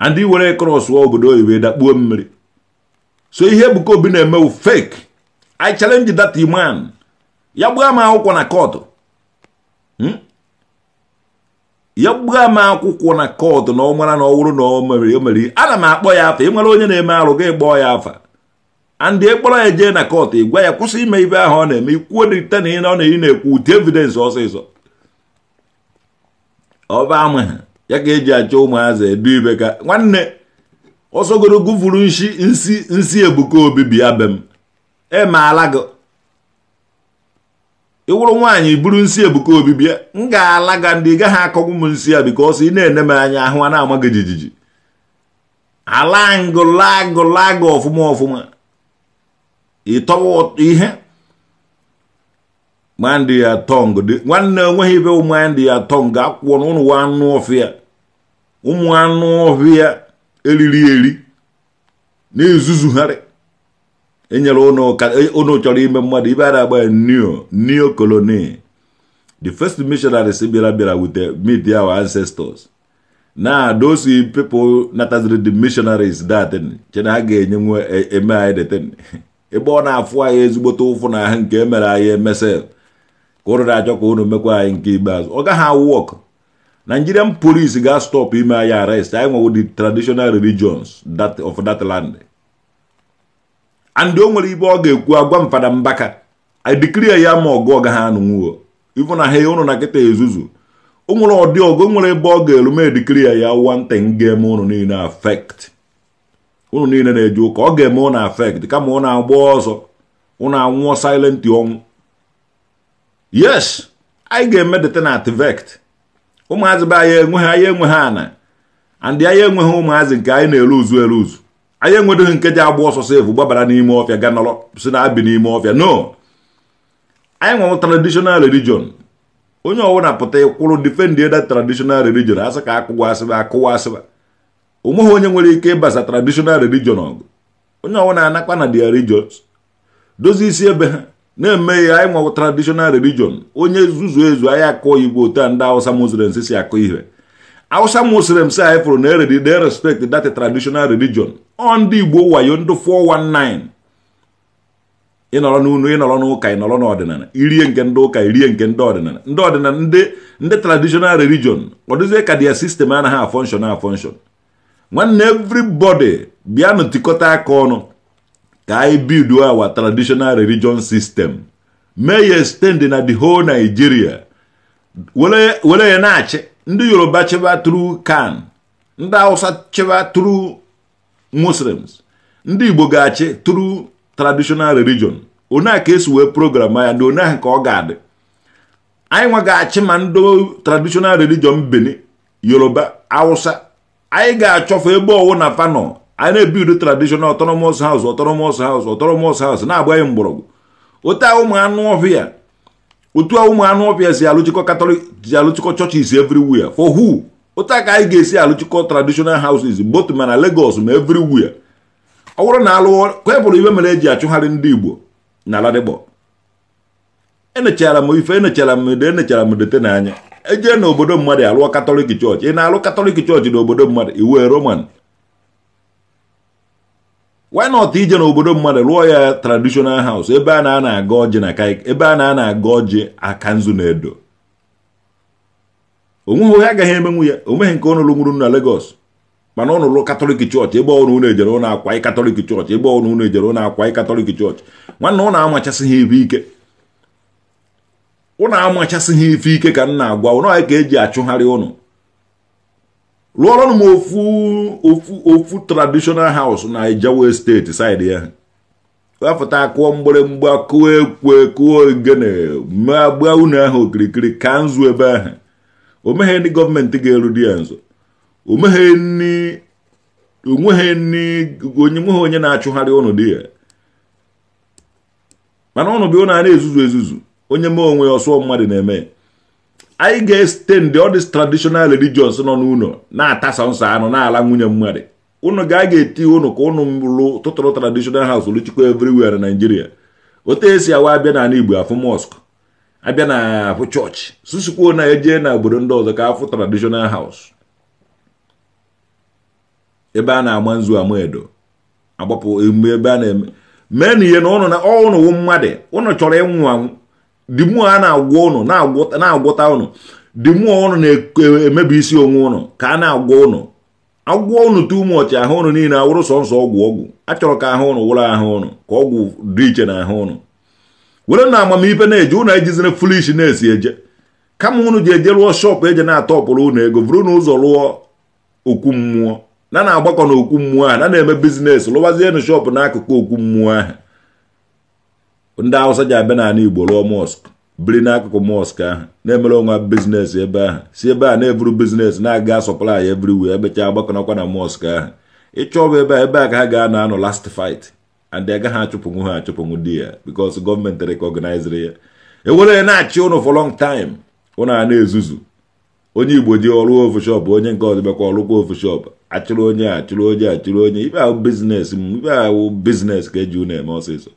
ndị were kros wa obodo oyibo dakpuo mmiri so ihe Ebuka Obi na eme fake I challenge that man ya gbaa m akwụkwọ na kọtụ hmm? ya gbaa m akwụkwọ na kọtụ na ọ mara na ọ wụrụ na o mere o ana m akpọ ya afa ị nwere onye na-eme arụ gị gbọọ ya afa andị ịkpọrọ ya jee na kot ị gwa ya kwụsị ime ibe ahụ ọ na-eme ikwuo na na ị na ọ na-ekwu ute evidence ọsịsọ ọba ha ya ka eji achọ ụmụazị edu ibe ka nwanne ọsọgoro gụfuru nsi nsi nsi ebuka obibi bịa be m emaala gị ịwụrụ nwaanyị buru nsi ebuka obibi bịa m ga-ala ga ndị gaghị akọgbu m nsi ya bika ọsọ ị na-ene m anya ahụ a na-ama gị jijiji ala ngụ lagụ lagụ ọfụma ọfụma ịtọwa ihe nwanne ya tọng dị nwanne enweghị ibe ụmụ anyị dị ya tọng ga-akwụkwọ na ụnụ anụ ọfịa ụmụ anụ ọhịa eriri eri na-ezuzugharị enyere ụnụ chọrọ ime mmadụ ibe a na-agba ya neo neo colony the first missionaries bịara bịara wute meet our ancestors na those people nataziri the missionaries that che na ha ga-enye nwe eme e anyị e deten ebe ọ na-afụ anyị ezigbote ụfụ na ahụ e nke emere anyị emesel ka ụrụ na-achọ ka unu mekwa anyị nke ikpeazụ ọ gaghị awụ ọkụ nigerian police ga-stop ime anyị arest anyị nwewo the traditional religions that of that land and o nwere ibe ọ ga-ekwu agwa mfada mbaka i declare ya ma ọgụ ọ gaghị anụnwuo ifu na ha ụnụ na nkịta ezuzu o nwere ọdị ọgụ nwere ebe ọ ga-eru ma ya wante ga-eme ụnụ niile afekt ụnụ niile na-eje ụka ọ ga-eme ụnụ affect kama ụnụ agba ọzọ ụnụ anwụọ silent ọnwụ yes anyị ga-emedeta na vect ụmụazị be anyị enweghị anyị enweghị ana andị anyị enweghị ụmụazị nke anyị na-eluzu eluzu anyị enwedoghị nke ji agba ọsọ sefu gbabara n'ime ọfịa ga nọrọ si na abi n'ime ọfịa no anyị nwere traditional religion onye ọbụla pụta ịkwụrụ defend ede traditional religion asị ka akụwa asịba akụwa asịba onweghị onye nwere ike ịbasa traditional religion ọgụ onye ọbụla anakwa na their religion dozie isi ebe ha na-emeghị anyị nwa traditional religion onye zuzu ezu anyị akọ igbo otu ndị awụsa muslims si akọ ihe awụsa muslims anyị fụrụ na respect that traditional religion ọ ndị igbo wayo ndị 419 ịnọrọ n'unu ịnọrọ n'ụka ịnọrọ n'ọdịnala irie nke ndị ụka irie nke ndị ọdịnala ndị ọdịnala ndị ndị traditional religion ọ dịzie ka dia sistem anaghị afọnshọn afọnshọn nwanne everybody bịa tikọta aka ọnụ ka anyị bido our traditional religion system mee ya extend na the whole Nigeria were ya na-achị ndị Yoruba chịba through kan ndị Hausa chịba through Muslims ndị Igbo ga-achị through traditional religion a ka esi wee program ya na onye ka ọ ga-adị anyị nwa achị ma ndị traditional religion Benin Yoruba Hausa anyị ga-achọfe ebe ọwụ na fanọ anyị na-ebido traditional autonomous house autonomous house autonomous house na-agbaghị mgbọrọgwụ otu a ụmụ anụ ọhịa otu a ụmụ anụ ọhịa si alụchikọ katọlik si alụchikọ churches everywhere for who otu a ka anyị ga-esi alụchikọ traditional houses both ma na Lagos ma everywhere ọ bụrụ na alụọ ka bụrụ ibe mere eji achụgharị ndị Igbo na aladịgbọ enechara m ife enechara m ede enechara m dete n'anya ejee na obodo mmadụ alụọ katọlik chọọchị ị na-alụ katọlik chọọchị na obodo mmadụ iwe roman why not ije n'obodo mmadụ rụọ ya traditional house ebe a na-ana aga ọjị na ebe a na aga ọjị aka nzu na edo onweghị onye agaghị emenwu ya onweghị nke ụnụ lụnwuru na Lagos mana ụnụ lụ katọlik chọọchị ebe ọnụ ụnụ ejere ụnụ akwa katọlik chọọchị ebe ọnụ ụnụ ejere ụnụ akwa katọlik chọọchị nwanne ụnụ amachasị ha ife ike ụnụ amachasị ha ife ike ka m na-agwa ụnụ ka eji achụgharị ụnụ rụọrọ m ofu ofu ofu traditional house na Ijaw steeti side ya wepụta akụọ mgbịrịgba kụọ ekwe kụọ ogene ma gbaa unu ahụ okirikiri ka nzu ebe ahụ o meghị ndị gọọmenti ga-eru di ya nso onweghị onye na-achụgharị ụnụ di ya mana ụnụ bụ ụnụ a na-ezuzu ezuzu onye mee onwe ya ọsọ mmadụ na-eme anyị ga-estend ọ these traditional religions nọ n'ụlọ na-atasa nsọ anụ na-ala nwunye mmadụ ụnụ ga ga-eti ụnụ ka ụnụ lụ tụtụrụ traditional house luchikwa everywhere na Nigeria otu esi awa abịa n'ala Igbo afụ mosque abịa na afụ chọọchị susukwuo na eje na obodo ndị ọzọ ka afụ traditional house ebe a na ama nzu ama edo agbapụ emume ebe a na-eme mee na ihe na ụnụ na ọ ụnụ mmadụ ụnụ chọrọ ịnwụ anwụ di mmụọ a na-agwọ ụnụ na-agwọta ụnụ di mmụọ ụnụ na-emebi isi onwe ụnụ ka a na-agwọ ụnụ agwọ ụnụ tu ụmụọchị ahụ ụnụ niile awụrụ sọnsọ nsọ ọgwụ ọgwụ achọrọ ka ahụ ụnụ wụrụ ahụ ụnụ ka ọgwụ dị iche na ahụ ụnụ were na amamife na-eje ụnụ ejizire fulish na-esi eje kama ụnụ ji eje rụọ shọpụ eje na-atọpụrụ ụnụ ego vụrụ na ụzọ rụọ okwu mmụọ na na-agbakọ na okwu mmụọ ahụ na na-eme bizinesi lụwazienụ shọpụ n'akụkụ okwu mmụọ ahụ ndị awụsa ji abịa n'ala igbo rụọ mosk biri n'akụkụ mosk ahụ na-emere onwe bizinesi ebe ahụ si ebe a na-eburu bizinesi na-aga sọplai everywhere ebechaa agbakọnakwa na mosk ahụ bụ ebe a ebe a ka ha ga-anọ anọ last fight and agaghị achụpụnwu ha achụpụnwu di ya because gọọmenti rekọgnaiziri ya ewere ya na-achị ụnụ for lọng time ụnụ a na-ezuzu onye igbo ji ọrụ ofushop onye nke ọzọ bịakwa ọrụkwa ofushop achụrụ onye achụrụ onye achụrụ onye ibe ahụ biznes m ibe ahụ ka eji unu eme ọsịsọ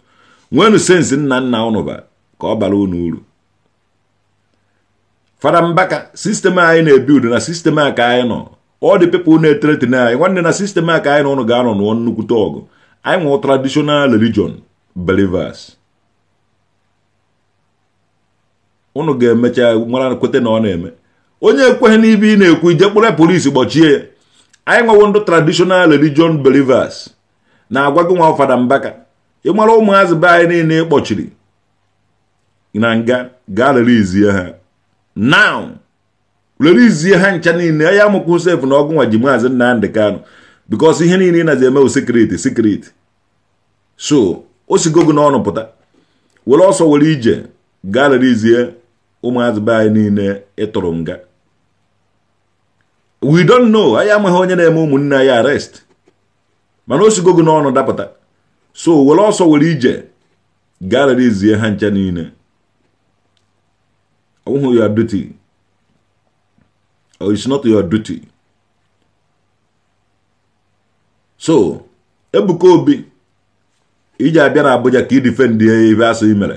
nwenu sensi nna nna unu ba ka ọ bara unu uru fada mbaka sistemụ anyị na-ebiudu na sistem a ka anyị nọ ọ dị pepụl na-eteretin anyị nwanne na sistem a ka anyị na ụnụ ga-anọ nụọ nnukwute ọgụ anyị nwụọ traditional religion believers ụnụ ga-emecha mara kweta na ọ na-eme onye ekweghị n'ibe ị na-ekwu ije kpụrụ polisi gbochie ya anyị nwewo ndị tradishonal religion believers na-agwa nwa fada mbaka ịmara ụmụazị be anyị niile kpọchiri na nga gaa relizie ha now relizie ha ncha niile ya mụkwụ sef na ọgụ nwa ji maazị Nnamdị Kanụ bikos ihe niile ị nazi emewu sekriti sekriti so o sigo n'ọnụ pụta were ọsọ were ije gaa relizie ụmụazị be anyị niile ịtụrụ nga we don't know anyị amaghị onye na-eme ụmụnne anyị arrest mana o sigo n'ọnụ dapụta so were ọsọ were ije gaa relezie ha ncha niile ọ bụghị ya duty or oh, it's not your duty so Ebuka Obi iji abịa na Abuja ka ị difendị ebe asụ i mere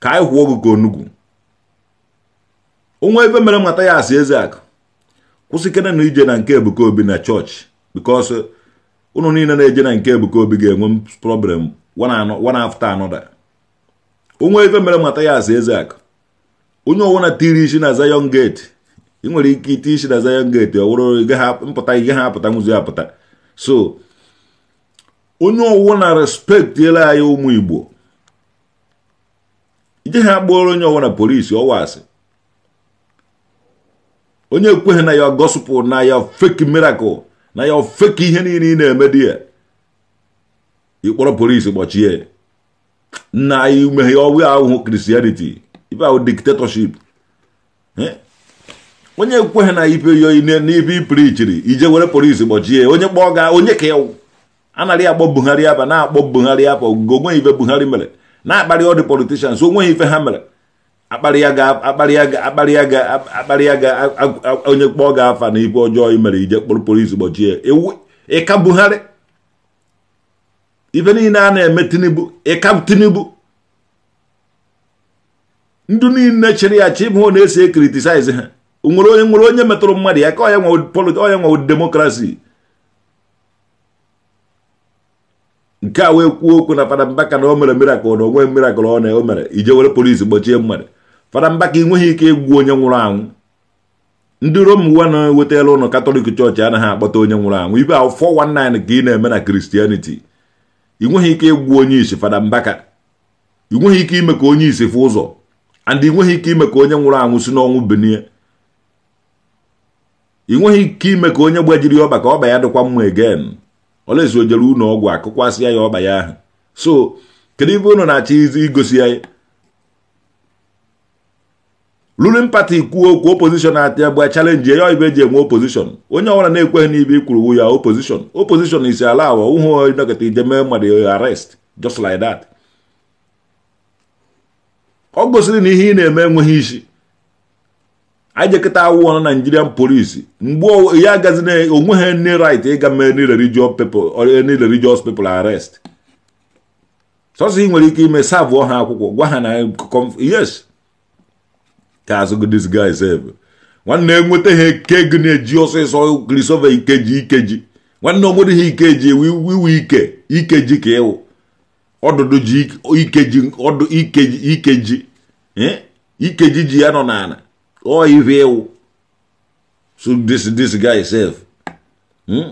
ka anyị kwụọ gị ka onugwu onwe ebe mere mata ya asị eze akụ na ije na nke Ebuka Obi na chọọchị bikos ụnụ niile na-eje na nke Ebuka Obi ga-enwe problem one after another onwe ife mere mata ya asa eze akụ onye na tiri isi na Zion Gate ị nwere ike iti isi na Zion Gate ọ wụrụ mpụta ihe ha apụta nwụzi apụta so onye ọwụna respektiela anyị ụmụ Igbo ije ha gbuoro onye ọwụna polisi ọwa asị onye ekweghị na ya gospel na ya fake miracle na ya ofe ka ihe niile ị na-eme di ya ịkpọrọ polisi gbochie nna anyị umeghe ọwụ ahụhụ kristianity ibe ahụ diktatorship onye kweghị na ibe ya n'ibe ipirichiri ije were polisi gbochie onye kpọọ ga onye ka ewu anaghị akpọ buhari aba na-akpọ buhari aba ogogo ife ibe buhari mere na-akparị ọdị politishans onweghị ife ha mere akparịa ya ga onye kpọọ ga afa na ibu ọjọọ i mere ije kpụrụkpụrụ izu gbochie ịka Buhari ife niile a na-eme Tinubu ịka Tinubu ndụ niile chịrị ya chi bụ na-ese kritisaiz ha nwere onye nwere onye metụrụ mmadụ ya ka onye nwe demokrasi nke a wee kwuo okwu na fada Mbaka na o mere mirakụl na onwe ọ na o mere ije polisi gbochie mmadụ fada Mbaka enweghị ike egwu onye nwụrụ anwụ ndị Rom uwe na-ewetala ụlọ katọlik chọọchị anaghị akpọta onye nwụrụ anwụ ibe ahụ 419 ka ị na-eme na kristianiti ị nweghị ike egwu onye isi fada Mbaka ị nweghị ike ime ka onye isi fụ ụzọ and ị nweghị ike ime ka onye nwụrụ anwụ si n'ọnwụ benie ị nweghị ike ime ka onye gbajiri ọba ka ọba ya dịkwa mma egen ọla o jere ụlọ ọgwụ akụkwasịa ya ọba ya ahụ so kedu ibe ụnụ na-achọ igosi ya ruling party kwuo okwu opozishon na-atị agba chalenji ya ibe eji enwe opposition onye ọbụla na-ekweghị n'ibe ikwuru wu ya opozishon opposition isi ala awa ụhụ nọkịta ijeme mmadụ arest just like that ọ gosiri na ihe ị na-eme enweghị isi anyị jekịta awụọ na Nigerian polisi mgbe ya agazi na onweghị nne rit ịga mee ni religious people ni religious people arrest sọsọ ị nwere ike ime savụọ ha akwụkwọ gwa ha na yes ka asị gị dis guy sef nwanne enweta ha ike gị na-eji ọsịsọ grisove ikeji ikeji nwanne ọ we we ikeji iwe ike ikeji ka ịwụ ọdụdụ ji ikeji ọdụ ikeji ikeji ikeji ji ya nọ n'ala ọ ife ịwụ so this this guy sef hm?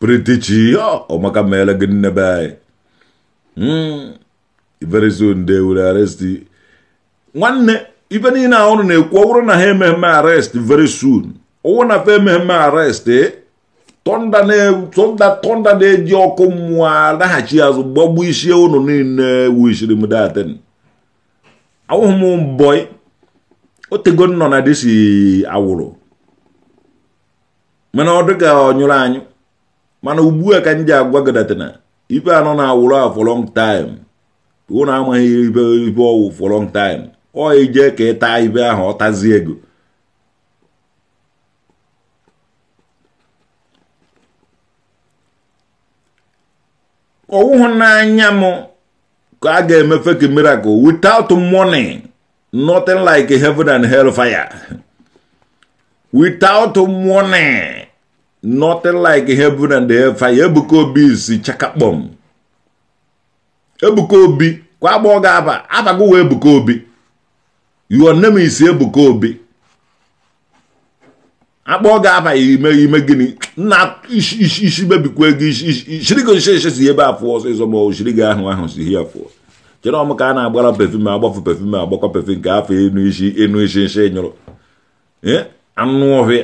pritichi ọ maka mere gị nne be anyị hm? very soon they will arrest nwanne ibe niile ahụrụ na-ekwu ọ na ha ememe arrest very soon ọwụ na fa ememe arrest eh, tọnda tọnda na-eji ọkụ mmụọ laghachi azụ gbagbu isi ụnụ niile wishiri m datin awụghị m mbọị otego nọ na disi awụrụ mana ọ dịka ọ nyụrụ anyụ mana ugbu a ka m ji agwa ife anọ na awụrụ afọ long time unu amaghị ibe ibe ọwụ for long time ọ ije ka ịta ibe ahụ ọtazi ego ọwụhụ n'anya m ka a ga-emefe ka miracle without money nothing like heaven and hell fire without money nothing like heaven and hell fire ebuka obi si chakakpọm ebuka obi kwa agbọghọ ga-aba abago wee Ebuka Obi your name is ebuko Obi akpọọ ga-aba ime ime gịnị nna isi mebikwa ego shirigo nsheshe si ebe afụ ọsịsọ ma oshirigo ahụ ahụ si ihe afụ chere ọmụ ka a na-agbara pefum agbafu pefum agbakwa pefum nke afọ enu isi enu isi nshi nyụrụ anụ ọhịa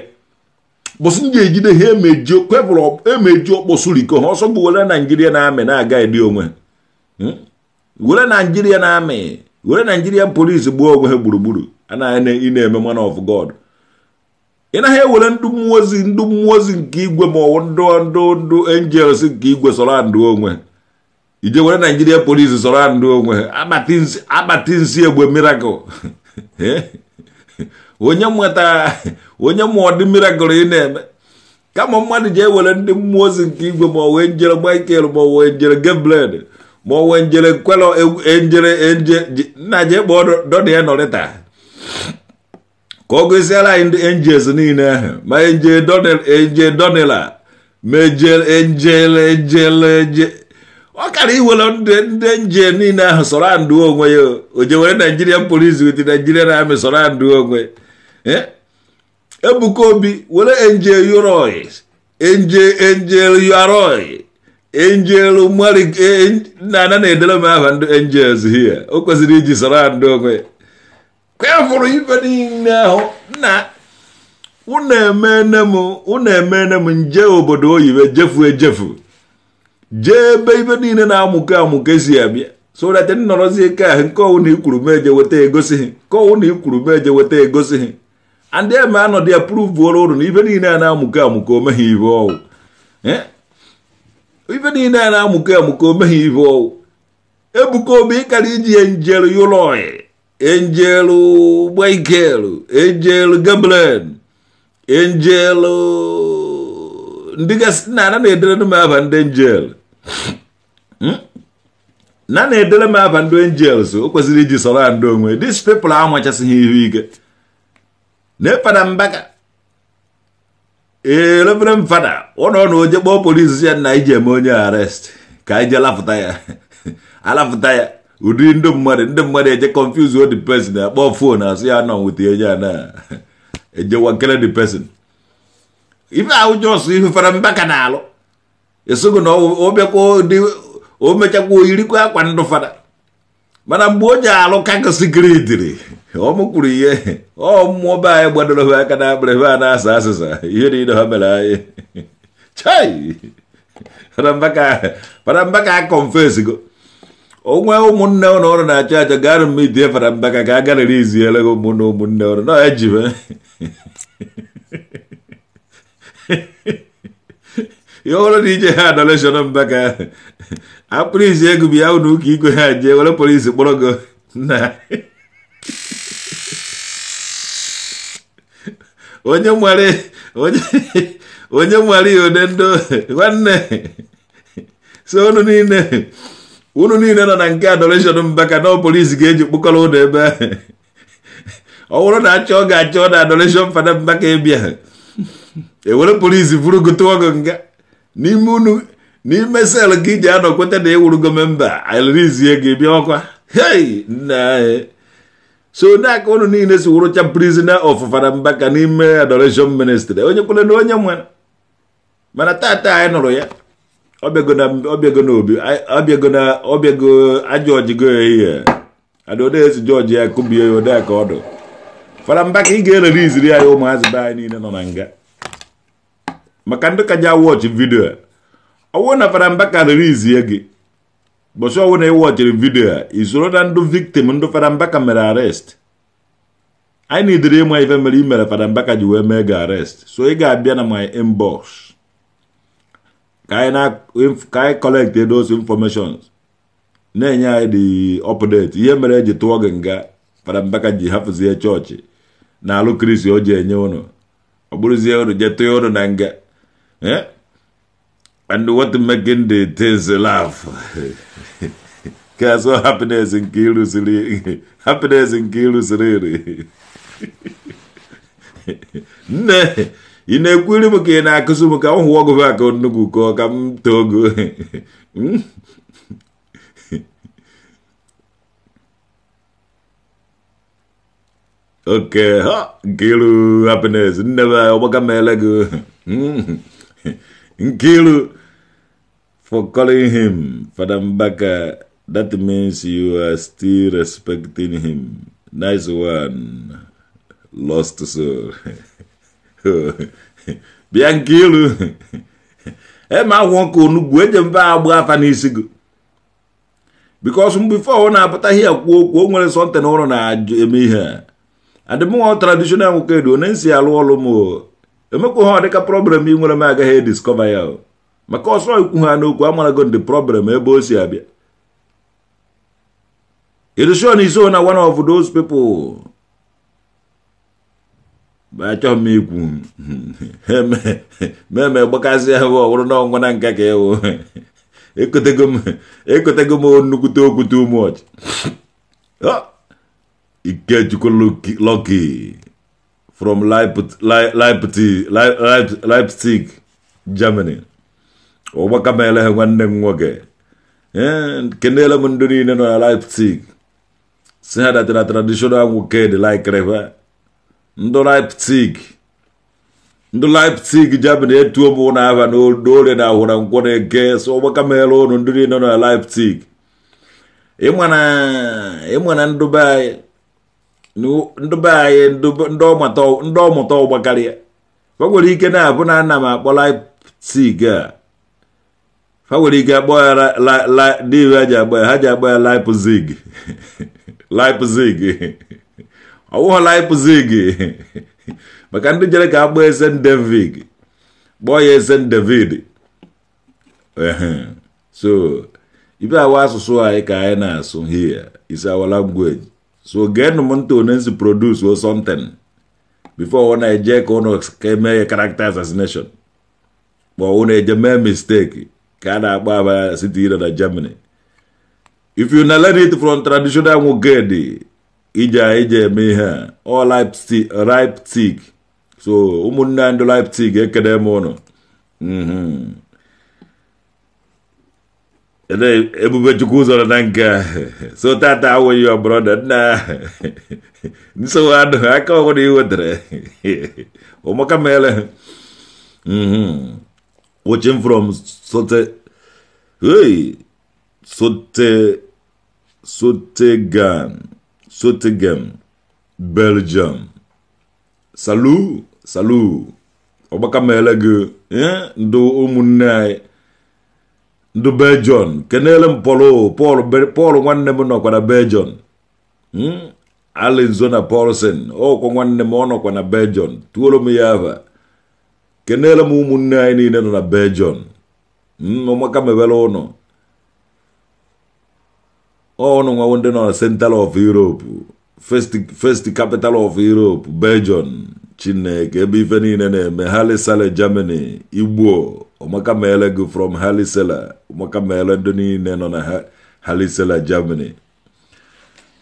bụsị ndị ejide ha emeji kwebụrụ emeji ọkpọsụ riko ha ọsọ bụ Naijiria na-amị na-aga edi onwe hmm? were na amị were naijirian polisi gbuo onwe ha gburugburu anaghị ị na-eme man of god ị naghị ewere ndụ mmụọ ndụ mmụọ nke igwe ma ndụ ndụ ndụ angels nke igwe sọrọ ndụ onwe ije were naijiria polisi sọrọ ndụ onwe akpati nsị egbe miracle onye nweta onye ma ọdị miracle ị na-eme kama mmadụ ji ewere ndị mmụọ ozi nke igwe ma ọwụ njere michael ma ọwụ njere gabriel ma ọ wee njere nkwelọ njere nje nna je kpọọ dọdụ ya nọrịta ka ọ gosiela anyị e ndị enjels e niile ahụ ma eje donela ma ejele ejele ejele eje ọ kara iwere ndị nje niile ahụ sọrọ andụ onwe ya o je were naijirian polis wit naijirian amị sọrọ andụ onwe ebuka obi were enje yoroi enje enje yoroi angel mari nna eh, eh, na-edere m aha ndị angels here o kwesịrị iji soro ndị onwe kwefụrụ ife niile ahụ na unu emene m unu emene m nje obodo oyibo jefu ejefu jee ebe ibe niile na-amụkọ amụkọ esi abịa so that nnọrọzie ike ahụ nke ọwụ na ikwuru meje weta egosighị nke ọwụ na ikwuru meje weta egosighị ndị eme anọdụ ya pụrụ vuoro ụrụ na ibe niile a na-amụkọ amụkọ omeghị ibe ọwụ eh? ife niile a na-amụkọ amụkọ omeghị ife ọwụ ebuka obi ịkara iji ya njelu yuloi enjelu gbaikel enjelu gabren enjelu ndịgasị gasị na na-edere m aba ndị enjel hmm? na na-edere m aba ndị so o kwesịrị iji sọrọ ndị onwe dis pepl anwachasịghị ihu ike na-epada mbaga. ee elefere m fada ụnọ na oje kpọọ polisi ya na iji eme onye arest ka anyị jee ya alafụta ya ụdị ndị mmadụ ndị mmadụ eje confuse the person akpọ fon asụ ya nọ nweta onye a na-ejewa nkele the person ife ahụ jọsụ ife mbaka ka na-alụ esogo na o bịakwa o mechakwa oyirikwa akwa ndụ fada mana mgbe onye ji alụ kakosikridiri ọ mụkwuru ihe ọ mmụọ be anyị gbadoro aka na akpịrị a na-asa asịsa ihe niile ha mere anyị chai farambaka a O onwe ụmụnne ụlọ ọrụ na-achọ achọ garụ m idie farambaka ka a garịrị iziere gị ụmụnne ụmụnne ụlọ na ejibe ihe ọrụ na ije ha adoleshọn mbaka akpụrụizi ego bụ ya ụlọ ụka igwe ha jee were polisi kpọrọ gị na onye nwere onye nwere ya ode ndo nwanne so unu niile unu niile nọ na nke adoreshọn mbaka ka na polisi ga-eji kpụkọrọ ụlọ ebe ọ bụrụ na achọ ọ ga-achọ na adoreshọn fada mba ka ewere e polisi buru gị nga n'ime unu n'ime sel gị ji anọkweta na ịwụrụgo memba alirizie gị bịa ọkwa hei nna eh. so n'aka unu niile si wụrụcha prisoner of Farambaka n'ime adoration ministry onye kwere na onye nwere mana tata anyị nụrụ ya ọbịago ajọ ojigo ya ihe adodezi jọji ya kụbie ya ode ka ọdụ Farambaka ị ga-ereriziri anyị ụmụazị be anyị niile nọ na nga maka ndị ka ji vidio vidiyo ọwụ na Fada ka ririzie gị ụbọchị ọwụ na ịwọchiri vidiyo a isoro na ndụ viktim ndụ Fada Mbaka mere arest anyị na-edere ịma ife mere i mere Fada Mbaka ji wee mee gị arest so ị ga-abịa na my inbox ka anyị collect those informations na-enye anyị dị update ihe mere eji tụọ gị nga Fada Mbaka ji hapụzie chọọchị na alụ kristi o ji enye ụnụ ọ bụrụzie ụnụ jee tụọ ụnụ na nga eh? and what making the things laugh. Because what happiness in Kilus really, happiness in Kilus really. Ne, inakwili mke na kusumu ka huwa kwa kwa nugu kwa kam togo. Okay, ha, Gilu happiness, never, wakamelegu. Gilu, for calling him Fadambaka. That means you are still respecting him. Nice one. Lost soul. Bianchilu. Ema wonko onugbu eje mba agba afa n'isi gị. Because before ọ na-apụta ihe kwuo okwu o nwere something na-eme ihe a. Adịmụọ traditional nwoke edo onye alu alu mo. m o. Emekwa ha ọ dịka problem ị nwere m agaghị maka ọsọ ikwu ha n'okwu amarago ndị problem ebe o si abịa ilusion is na one of those people achọ m ikwu meme gbakasị ahụ ọhụrụ n'ọnwa na nka ka ewu ekotego m nnukwute okwu too much ah, ikechukwu Lucky from Leipzig Germany ụgbaka m eleghe nwanne m nwoke ee kenela m ndị niile nọ na Leipzig si ha datara traditional nwoke dị laikrewe ndụ Leipzig ndụ Leipzig Germany etuo m na aba n'orie na ahụ na nkwọ na-eke so ụgbaka m ele ụnụ ndị niile nọ na Leipzig ịma na ndụ be anyị ndị be anyị ndị ọmụta ụgba karịa o ike na-abụ na ana akpọ Leipzig a ha nwere ike akpọ ya dịwe ha ji agba ha ji agba ya Leipzig Leipzig ọ wụghọ Leipzig maka ndị jere ka akpọ esen david kpọọ ya esen david so ibe awa asụsụ anyị ka anyị na-asụ here is our language so geenụ m ntị onye nsi produce or something before ọ na-eje ka ụnụ ka eme ya character assassination ma ọ na-eje mee mistake ka a na-akpọ aba na Germany if you na learn it from traditional nwoke dị ije ije eme ihe a ripe Leipzig so ụmụnne anyị ndị Leipzig ekele m ụnụ mhm. ebube chukwu zọrọ na nke so tata awụghị ya brọda nna nsogbu adụ aka ọhụrụ i wetara ụmụaka mere mhm. watching from Sote, hey, Sote, Sottegem, Sottegem, Belgium. Salut, salut. ọgbaka meele gị eh, ndụ ụmụnne anyị ndụ belgium kenele m pọl pọl nwanne m nọkwa na belgium hmm? alizona paulsen ọkwa oh, nwanne m ọ nọkwara belgium tuoro m ya ava kenele m ụmụnne anyị niile nọ na belgium hmm, ụmụaka mebere ụnụ ọnụ nwawo ndị nọ na central of europe first capital of europe belgium chineke ebe ife niile na-eme salle germany igbo ọmaka meele gị from halisela ọmaka meele ndị niile nọ na halisela germany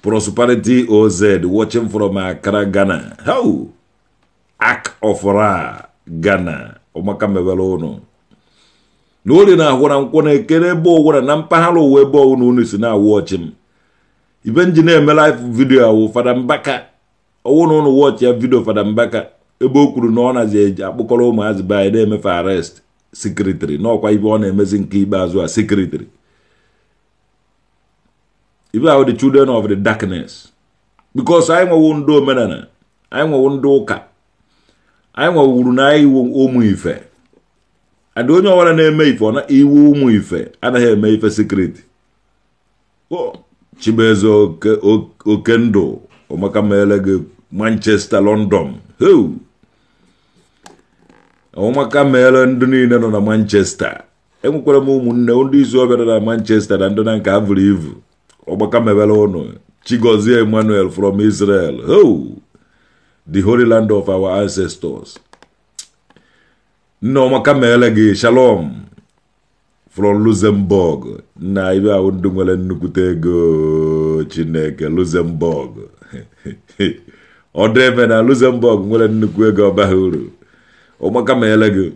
prosperity oz watching from accra ghana how act of ra Ghana ụmụaka mewere ụnụ na orie na na nkwụ na-ekere ebe ọgwụra na mpaghara ụwa ebe ọwụ na si na-awụ ọchị m ibe nji na-eme live vidio awụ fada mbaka ọwụ na ụnụ wọchị ya vidio fada mbaka ebe o kwuru na ọ nazi eji akpụkọrọ ụmụazị be anyị na-emefe arrest sekretịrị n'ọkwa ibe ọ na-emezi nke ikpeazụ a sekretịrị ibe ahụ the children of the darkness because anyị nwewo ndị omenala anyị nwewo ndị ụka anyị nwewuru na iwu ụmụ ife adị onye ọbụla na-eme ife ọ na iwu ụmụ ife anaghị eme ife sekriti chibueze oke ndụ omakameele gị manchester london omaka meele ndị niile nọ na manchester enwekwara m ụmụnne ndị izu ọbịa na manchester na ndị na nke ha vụrụ ivu ọgbaka mebere ụnụ chigozie emmanuel from israel the holy land of our ancestors. Nneoma kamele gị shalom from Luxembourg na ibe ahụ ndị nwere nnukwute ego Chineke Luxembourg ọ dị ebe na Luxembourg nwere nnukwu ego ọbaghị uru ụmụaka kamele gị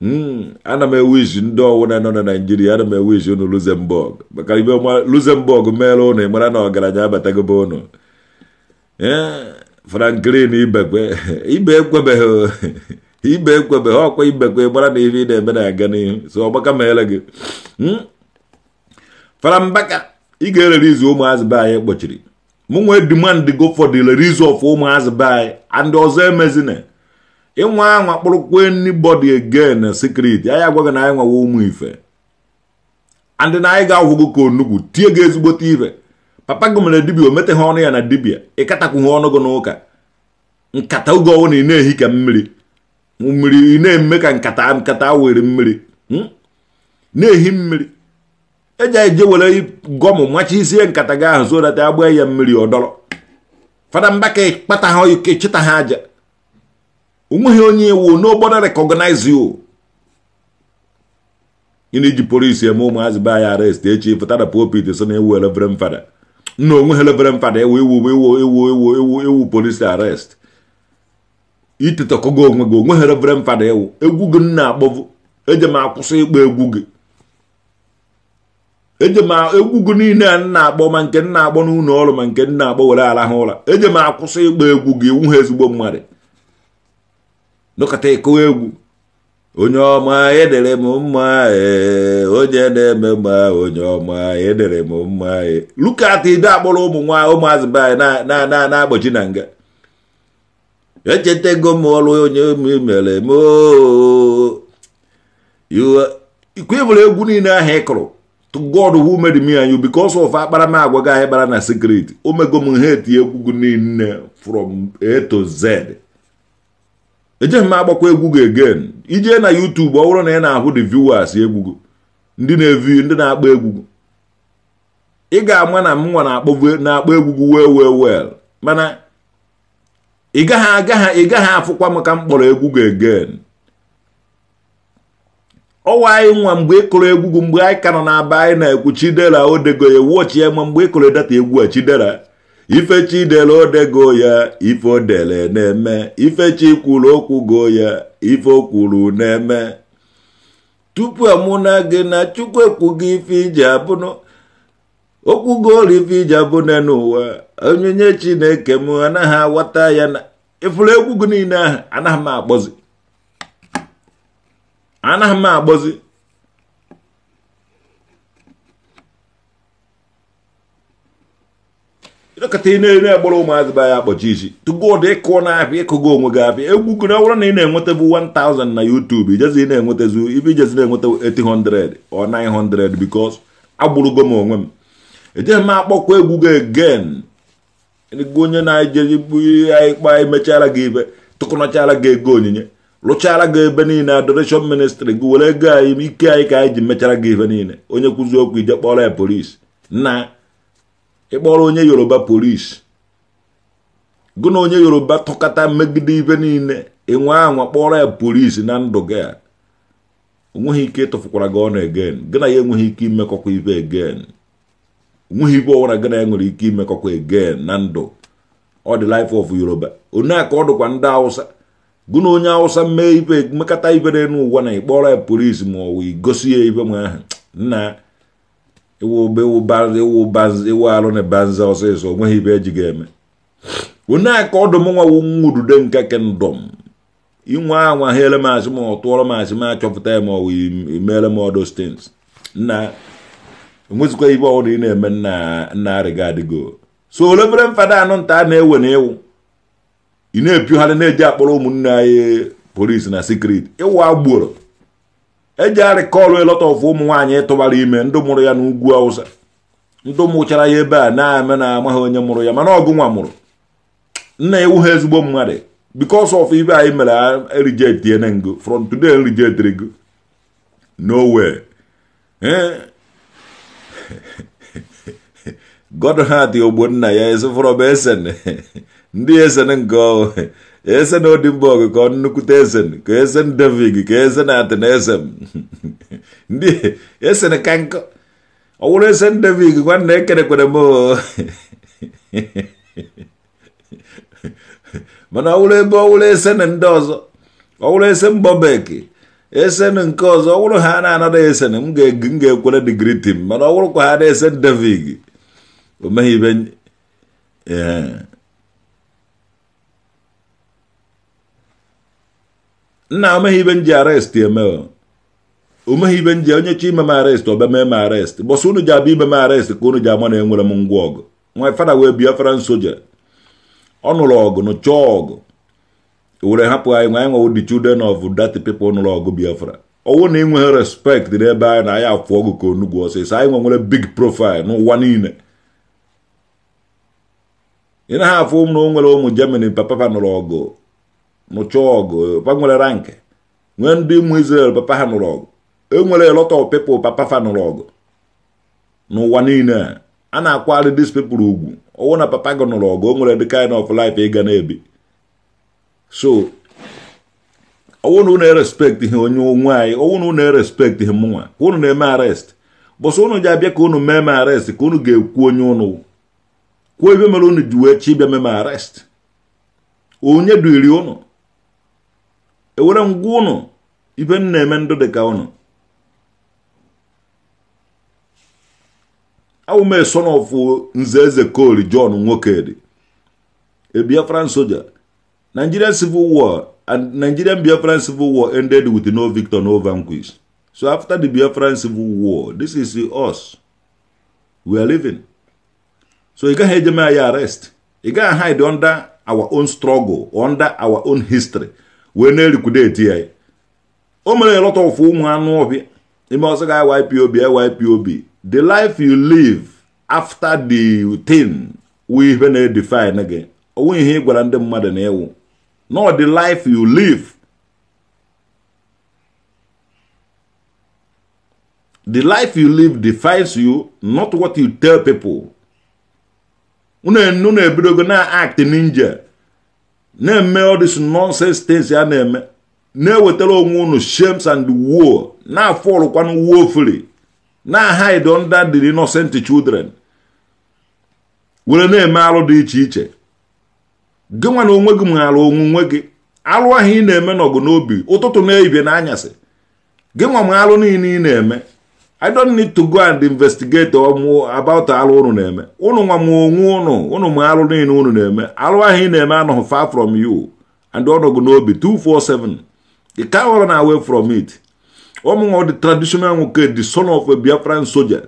hmm, ana m ewishi ndị ọwụna nọ na Naịjirịa ana m ewishi unu Luxembourg maka ibe Luxembourg meere unu ị na ọgaranya abatagobe unu ee eh, franklin ibekwe ibe ekwebeghị ibe ekwebeghị ọkwa ibekwe gbara na ihe ị na-eme na-aga n'ihu so ọgbaka ma ele gị hmm? farambaka ị ga-erere izu ụmụazị be anyị kpochiri mụ nwee demand go for the release of ụmụazị be anyị and ọzọ emezina ịnwa anwa kpụrụkwa anybody again na secret anyị agwaghị na anyị nwawa ụmụ ife and na anyị ga-ahụgo ka onugwu tie gị ezigbote ife papa gị mere dibia o meteghị ọnụ ya na dibia ịkatakwughị ọnụ gị n'ụka nkata oge ọwụ na ị na-ehi ka mmiri mmiri ị na-eme ka nkata nkata were mmiri hmm? na-ehi mmiri eji eje were gọmụ machi isie nkata gị ahụ data agba ya mmiri ọdọrọ fada mbaka kpata ha ike chịta ha aja onweghị onye iwu n'obodo rekọgnaiz o. ị na-eji polisi eme ụmụazị be anya arest echi fụtara popit so na ewu elevere m nna onwe ha lebere mpada ewu ewu ewu ewu ewu ewu ewu polisi arest itetọkọgo onwe gị onwe ha lebere mpada ewu egwu gị nna akpọvu eje m akwụsị ịkpọ egwu gị eje m egwu gị niile a nna akpọ ma nke nna akpọ n'ụlọ ọrụ ma nke nna akpọ were ala ha ụra eje m akwụsị ịkpọ egwu gị iwu ha ezigbo mmadụ nọkọta ịkọwa egwu onye ọma edere m mma e, onye na-eme mma onye ọma edere m mma e. lukat ido akpọrọ ụmụ nwa ụmụazị be anyị na-agbochi na nga ego m ọrụ onye mere m ikwe egwu niile ahụ ị kụrụ God who made me and you because of akparamagwa gị anyị kpara na secret omego m ha eti egwu niile from A to Z ejeghị m agbakwa egwu gị again ije na YouTube ọ bụrụ na ị na-ahụ the viewers egwu ndị na-evi ndị na-akpọ egwu ị ga-ama na m nwa na-akpọ egwu well well well mana ị gaghị agaghị ị gaghị afụkwa m ka m kpọrọ egwu gị again ọwa anyị nwa mgbe ị kụrụ egwu gị mgbe anyị ka nọ na-aba anyị na-ekwu chidera odego ya wụọchie ma mgbe ị kụrụ data egwu a chidera dere odego ya ife odere na-eme ifechi kwuru okwugo ya ife o kwuru na-eme tupu amụna gị na chukwu ekwugo ife iji abụnụ ọrụ ife iji abụna n'ụwa onyinye chineke m anaghị aghọta ya na ifuru egwu gị niile ahụ anaghị m akpọzi anaghị m akpọzi ịnọkọta ị na-egboro ụmụazị be anyị akpọchi isi tụgo ụdị ịkụ na apịa ịkụgo onwe gị abịa egwu gụna ọ na ị na-enwetabu 1000 na yutubu ijezi ị na-enwetazu ibe ijezi na-enweta 800 o 900 bikos agbụrụgo m onwe m ejeghị m akpọkwa egwu gị again onye na-eje bụ ihe ikpa emechara gị ibe tụkọnọchara gị ego onyinye rụchara gị ebe niile adoration ministry gị were ego anyị ike anyị ka anyị ji mechara gị ife niile onye kwụzi okwu ije kpọrọ ya polisi na ịkpọrọ onye yoruba polisi gụ na onye yoruba tụkọta megide ibe niile ịnwe anwa kpọrọ ya polisi na ndụ gị a onweghị ike ịtụfukwara gị ọnụ egen gị na ya enweghị ike imekọkwa ibe egen onweghị ibe ọwara gị na ya nwere ike imekọkwa egen na ndụ ọ dị life of yoruba onye a ka ọ dịkwa ndị awụsa gụ na onye awụsa mee ibe mekọta ibe n'ụwa na ịkpọrọ ya polisi ma ọ wụ igosi ya ibe m ahụ nna ewu alụ na banza ọsịsọ onweghị ibe eji ga-eme onye aka ọdụm nwa wu nwudude nke kendọm inwe anwa ha ele asị ma ọ tụọrọ asị ma achọpụta ya ma ọ emere m ọdụ stins nna enwezikwa ibe ọbụla ị na-eme nna nna arịgadịgo so olebere mfada anụ nta a na-ewe na ịwụ ị na-epiogharị na-eji akpọrọ ụmụnne anyị polisi na sikriti ịwụ agboro eji arịkọlụ elọtọfụ ụmụ nwaanyị tụbara ime ndị mụrụ ya n'ugwu awụsa ndị mụchara ya ebe a na-eme na amaghị onye mụrụ ya mana ọgụ nwa mụrụ nna ewu ha ezigbo mmadụ bikos of ibe anyị mere erijetie na ngo from today erijetiri go n'owe way ogbonna ya ezifụrọba ndị nke ese na odimborg ka nnukwute eze ka esen david ka esen na ateneze ndị ese ka nkọ ọ wụrụ eze david nwanne ekerekwere m mana ọwụrụ ebe ọ esen ndị ọzọ ọ esen bobek esen nke ọzọ ọ ha na-anada esen m ga-ekwere mana ọ wụrụkwa ha na esen david o meghị ibe nna omeghị ibe nji arest eme omeghị ibe nji onye chi ime m arest obeme m arest bọsụ unu ji abịa ime m arest ka unu ji ama na enwere m ngwa ọgụ nwa fada wee biafra nsoja ọ nụrụ ọgụ nụ chọọ ọgụ e were hapụ anyị nwa anyị nwewo the children of that people nụrụ ọgụ biafra ọwụ na ịnweghị respect n'ebe anyị na anyị afụ ọgụ ka onugwu ọsịsọ anyị nwe nwere big profile n'ụwa niile ị naghị afụ m na o nwere ụmụ Germany papa nụrụ ọgụ nụcha ọgụ papa nwere rank nwee ndị ụmụ Israel papa ha nụrụ ọgụ enwere lot of people papa fa nụrụ ọgụ n'ụwa niile a na-akwari dis people ugwu ọwụ na papa gị nụrụ ọgụ o nwere dị kind of life ị e ga na-ebi so ọwụ na unu erespekt ihe onye onwe anyị ọwụ na unu erespekt ihe mụnwa ka unu na-eme arrest bọs unu ji abịa ka unu mee m arrest ka unu ga-ekwu onye unu kwuo ebe mere unu ji wee chi bịa mee m arrest onye duiri unu ewere ngwa ụnụ ibe m na-eme ndụ dị ka ụnụ awụme son of nze eze kol john nwokedi a biafran soldier nigerian civil war and nigerian biafran civil war ended with no victor no vanquish so after the biafran civil war this is us we are living so ị gaghị ejeme anyị arrest ị gaghị hide under our own struggle under our own history wee na-elikwudeti ya o mere elọta ụfụ ụmụ anụ ọhịa ime ọsọ ga YPOB YPOB the life you live after the thing wee ihe na-edefine gị onwe ihe ị gwara ndị mmadụ na ịwụ not the life you live the life you live defines you not what you tell people unu ebidogo e na act ninja na-eme all this nonsense ya na-eme na-ewetara onwe unu shems and woe na-afọlụkwanụ woefully na-hide under the innocent children were na-eme alụ dị iche iche gị onwe gị alụ onwunwe gị alụ ahụ ị na-eme n'ọgụ n'obi ụtụtụ na-ebie n'anyasị gị nwa m alụ niile ị na-eme I don't need to go and investigate about alụ unu na-eme unu nwa m onwe unu unu ma alụ niile unu na-eme alụ ahụ ị far from you and ọnọgụ n'obi 247 ị ka họrọ na away from it ụmụnwa the traditional nwoke the son of a Biafran soldier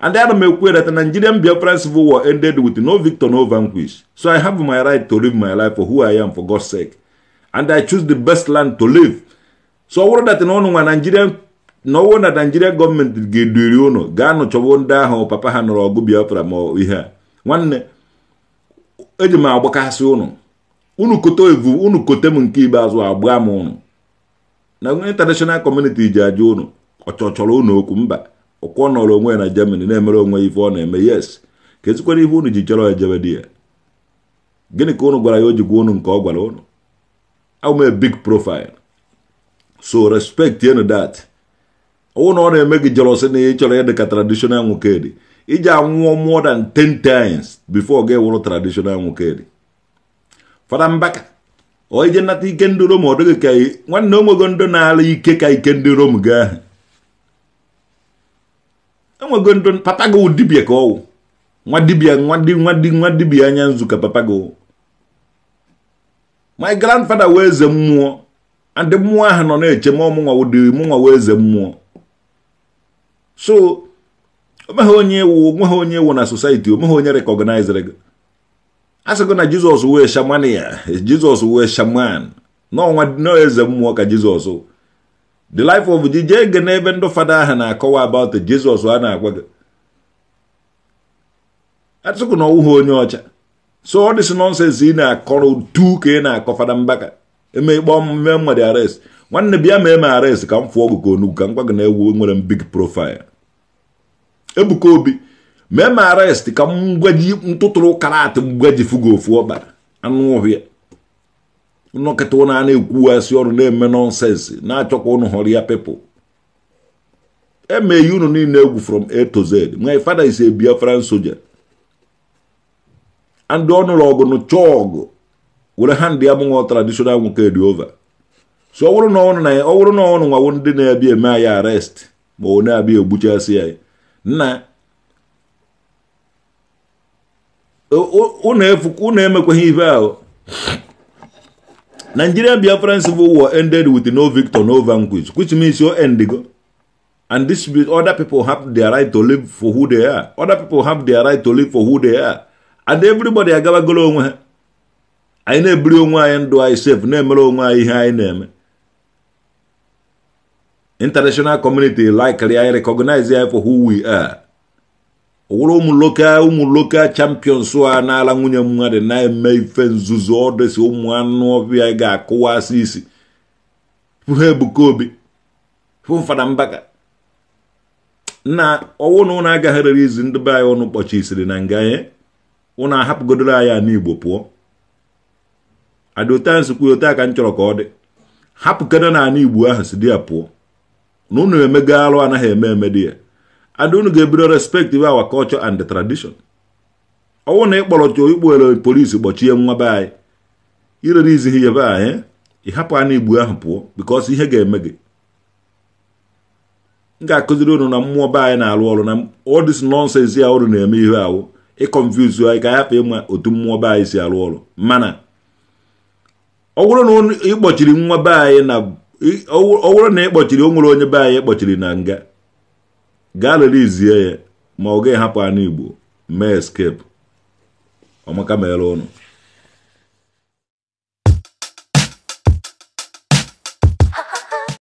and that m ekwu that Nigerian Biafran civil war ended with no victor no vanquish so I have my right to live my life for who I am for God's sake and I choose the best land to live so I bụrụ that na ọnụ nwa Nigerian na na naijiria gọọmenti ga-eduri ụnụ ga-anụ chọwo ndị ahụ papa ha nọrọ ọgụ biafra ma ihe a nwanne eji m agbakasị ụnụ unu kote evu unu kote m nke ikpeazụ agbaa m ụnụ na international community ji ajụ ụnụ ọchọchọrọ ụnụ okwu mba ọkwọ nọrọ onwe ya na germany na-emere onwe ife ọ na-eme yes ka ezikwara ihe unu ji chọrọ ejebe di ya gịnị ka ụnụ gwara ya o ji gwa ụnụ nke ọ gwara ụnụ awụme big profile so respect enu that ụna ọ na-eme gị jelọsị na ị chọrọ ịdị ka traditional nwoke iji anwụọ more than ten times before ga ewụrụ traditional nwoke dị fada mbaka ọ ije nata ike ndị rom ọ dịghị ka nwanne onwego ndị na-ala ike ka ike ndị rom gaa enwego ndị papa gị dibia ka ọwụ nwa dibia nwa di nwa di nwa dibia anya nzu ka papa gị my grandfather wee eze mmụọ and mmụọ ahụ nọ na-eche ma ọmụnwa wụdị mụnwa wee eze mmụọ so onweghị onye ewu onweghị onye ewu na society onweghị onye recognizere gị a sịgo na jizọs wee shaman ya jizọs wee shaman n'ọnwa n'eze mmụọ ka jizọs the life of jije ege n'ebe ndị fada ahụ na-akọwa about jizọs a na-agwa gị atụkụ na ọwụghị onye ọcha so ọ dịsị nọnsens ị na-akọrọ tu ka ị na-akọ fada mbaka emekpọ mme mmadụ arrest nwanne bịa ma eme arrest ka m fụọ ọgụ ka onugwu ka m gwa gị na ewu e nwere m big profile Ebuka Obi mee m arrest ka m gwaji ntụtụrụ karat ji fugo ofu ọkpa anụ ọhịa nọkịta ụnụ a na-ekwuwasị ọrụ na-eme nonsensi na-achọkwa ụnụ hụrụ ya pepụl emeghị unu niile egwu from A to Z my father is ebia Biafran soldier and ọnụrụ ọgụ nụchọọ were hand ya mụnwa traditional nwoke dị ova so ọ bụrụ na ọnụ nwa wụ ndị na-abịa eme anyị arest ma ọ na-abịa egbuchasị anyị na unu ihe ibe ahụ Nigeria Biafran civil war ended with no victor no vanquish which means your endigo and this other people have their right to live for who they are other people have their right to live for who they are and everybody agabagolo onwe ha anyị na-ebiri onwe anyị ndụ anyị sef, na-emere onwe anyị ihe anyị na-eme international community likely i recognize ya for who we are wụrụ ụmụ local ụmụ local champions a n'ala nwunye mmadụ na-eme ife nzuzo ọdịsị ụmụ anụ ọbịa ga-akụwasị isi ha ebuka obi fụfada mbaka na ọwụ na ụnụ agagharịrị izi ndị be anyị ọnụ kpọchisiri na nga anyị ụnụ ahapụgodoro anyị n'igbo pụọ adịotansi kwuo taa ka m chọrọ ka ọ dị hapụkana na anụ igbo ahụ si di ya pụọ na unu emega arụ anaghị eme emedi ya and unu ga-ebido respektiv our culture and the tradition ọnwụ na ịkpọrọ ikpowere polisi kpọchie nwa be anyị irere izi ya be anyị ịhapụ anya igbu ahụ pụọ bikos ihe ga-eme gị m ga-akụziri unu na mmụọ be anyị na-arụ ọrụ na all this nonsense ya unu na-eme ihe ahụ ịkọnfuz anyị ka ahapụ ịma otu mmụọ be anyị si arụ ọrụ mana ọ bụrụ na ịkpọchiri nwa be anyị na ọ bụrụ na ị kpọchiri o nwere onye be anyị kpọchiri na nga gaa relizie ya ma ọ gaghị hapụ anụ igbo mee eskepu ọmaka mere ụnụ